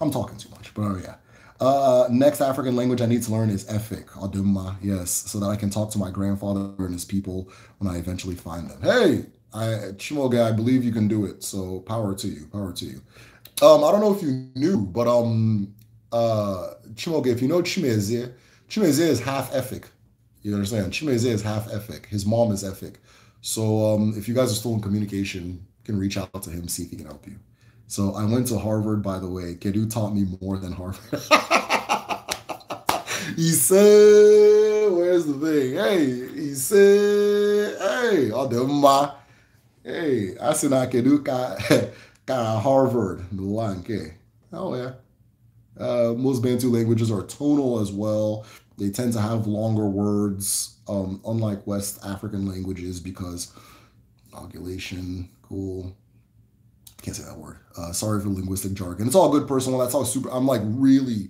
I'm talking too much, but oh yeah. Uh, uh, next African language I need to learn is Efik, Adumma, yes, so that I can talk to my grandfather and his people when I eventually find them. Hey, I, Chimoga, I believe you can do it. So power to you, power to you. Um, I don't know if you knew, but um, uh, Chimoga, if you know Chimeze, Chimeze is half Efik. You understand? Chimeze is half Efik. His mom is Efik. So um, if you guys are still in communication, you can reach out to him, see if he can help you. So I went to Harvard, by the way. Kedu taught me more than Harvard. he said, where's the thing? Hey, he said, hey, ọdịmma. Oh, hey, I sị na kedu ka ka Harvard n'ụwa Oh yeah. Uh, most Bantu languages are tonal as well. They tend to have longer words, um, unlike West African languages, because oculation, cool, can't say that word. Uh, sorry for linguistic jargon. It's all good personal. That's all super. I'm like really,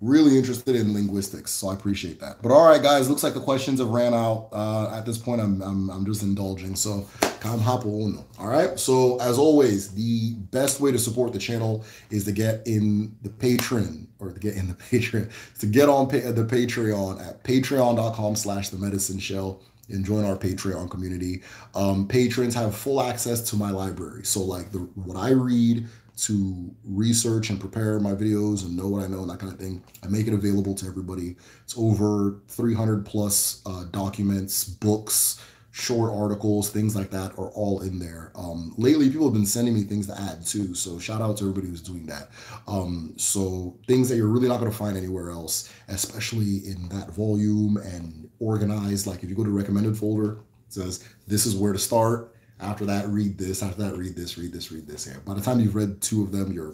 really interested in linguistics, so I appreciate that. But all right, guys, looks like the questions have ran out. Uh, at this point, I'm, I'm I'm just indulging. So come All right. So as always, the best way to support the channel is to get in the patron or to get in the patron to get on pa- the Patreon at patreon.com/slash the medicine shell and join our Patreon community. Um, patrons have full access to my library. So like the what I read to research and prepare my videos and know what I know and that kind of thing. I make it available to everybody. It's over 300 plus uh, documents, books, short articles, things like that are all in there. Um, lately, people have been sending me things to add too. So shout out to everybody who's doing that. Um, so things that you're really not going to find anywhere else, especially in that volume and organized. Like if you go to recommended folder, it says this is where to start. After that, read this. After that, read this. Read this. Read this. Yeah. By the time you've read two of them, you're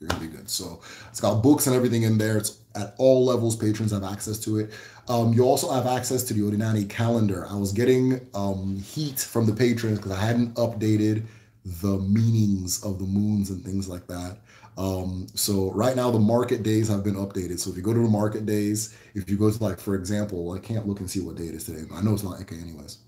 you're gonna be good. So it's got books and everything in there. It's at all levels. Patrons have access to it. Um, you also have access to the Odinani calendar. I was getting um, heat from the patrons because I hadn't updated the meanings of the moons and things like that. Um, so right now the market days have been updated. So if you go to the market days, if you go to like, for example, I can't look and see what day it is today, but I know it's not okay anyways.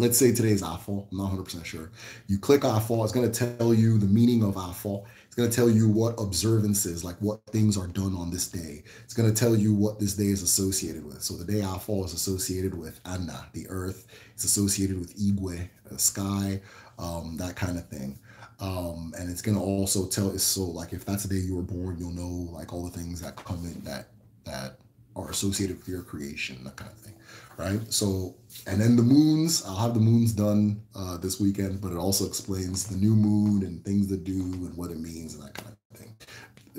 Let's say today is IFAL. I'm not 100% sure. You click IFAL. It's going to tell you the meaning of IFAL. It's going to tell you what observances, like what things are done on this day. It's going to tell you what this day is associated with. So the day Afal is associated with Anna, the earth. It's associated with Igwe, the sky, um, that kind of thing. Um, and it's gonna also tell its soul. Like if that's the day you were born, you'll know like all the things that come in that that are associated with your creation, that kind of thing, right? So, and then the moons, I'll have the moons done uh, this weekend, but it also explains the new moon and things to do and what it means and that kind of thing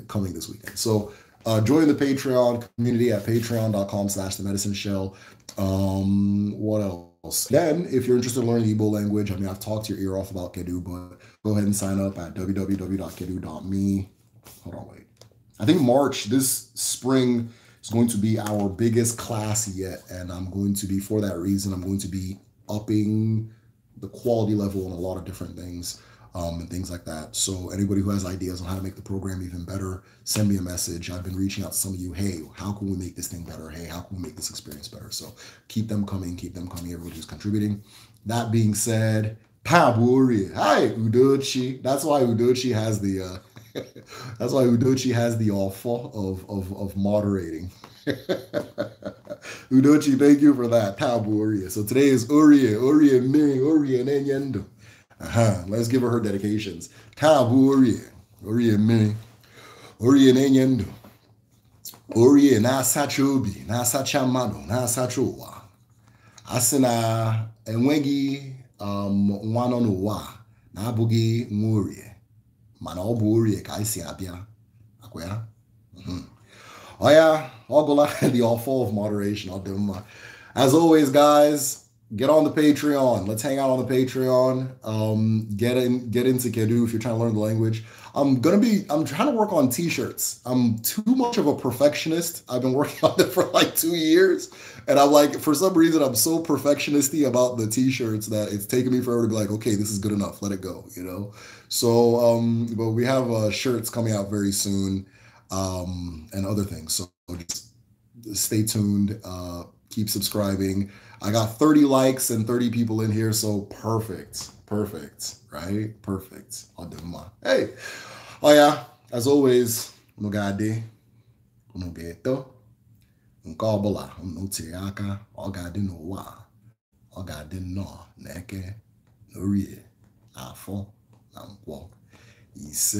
coming this weekend. So, uh, join the Patreon community at patreon.com slash the medicine shell. Um, what else? else. Then, if you're interested in learning the Igbo language, I mean, I've talked your ear off about Kedu, but go ahead and sign up at www.kedu.me. Hold on, wait. I think March, this spring, is going to be our biggest class yet. And I'm going to be, for that reason, I'm going to be upping the quality level on a lot of different things um, and things like that. So anybody who has ideas on how to make the program even better, send me a message. I've been reaching out to some of you. Hey, how can we make this thing better? Hey, how can we make this experience better? So keep them coming, keep them coming. Everybody's contributing. That being said, Paburi. Hi, Udochi. That's why Udochi has the uh, that's why Udochi has the offer of of, of moderating. Udochi, thank you for that. Tabu So today is Urie, Urie Ming, Urie Nenyendo. aha uh-huh. let's give her her dedications taa bụ orie orie mmiri orie na-enye ndụ orie na-asacha obi na-asacha mmadụ na-asacha ụwa a sị na enweghị um, nwa nọ n'ụwa na-abụghị nwa orie mana ọ bụ orie ka anyị si abịa akwa mm-hmm. ya ọya ọgụla the offer of moderation ọ dị mma as always guys get on the Patreon. Let's hang out on the Patreon. Um, get in, get into Kedu if you're trying to learn the language. I'm gonna be. I'm trying to work on T-shirts. I'm too much of a perfectionist. I've been working on it for like two years, and I'm like, for some reason, I'm so perfectionisty about the T-shirts that it's taken me forever to be like, okay, this is good enough. Let it go, you know. So, um, but we have uh, shirts coming out very soon, um, and other things. So just stay tuned. Uh, keep subscribing. I got 30 likes and 30 people in here, so perfect. Perfect, right? Perfect. I'll do my. Hey. Oh yeah, as always, no gade, no ghetto, nke ọbụla m ntinye aka, o n'eke, afọ na nkwọ. Ise.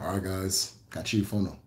All right, guys. Catch you for now.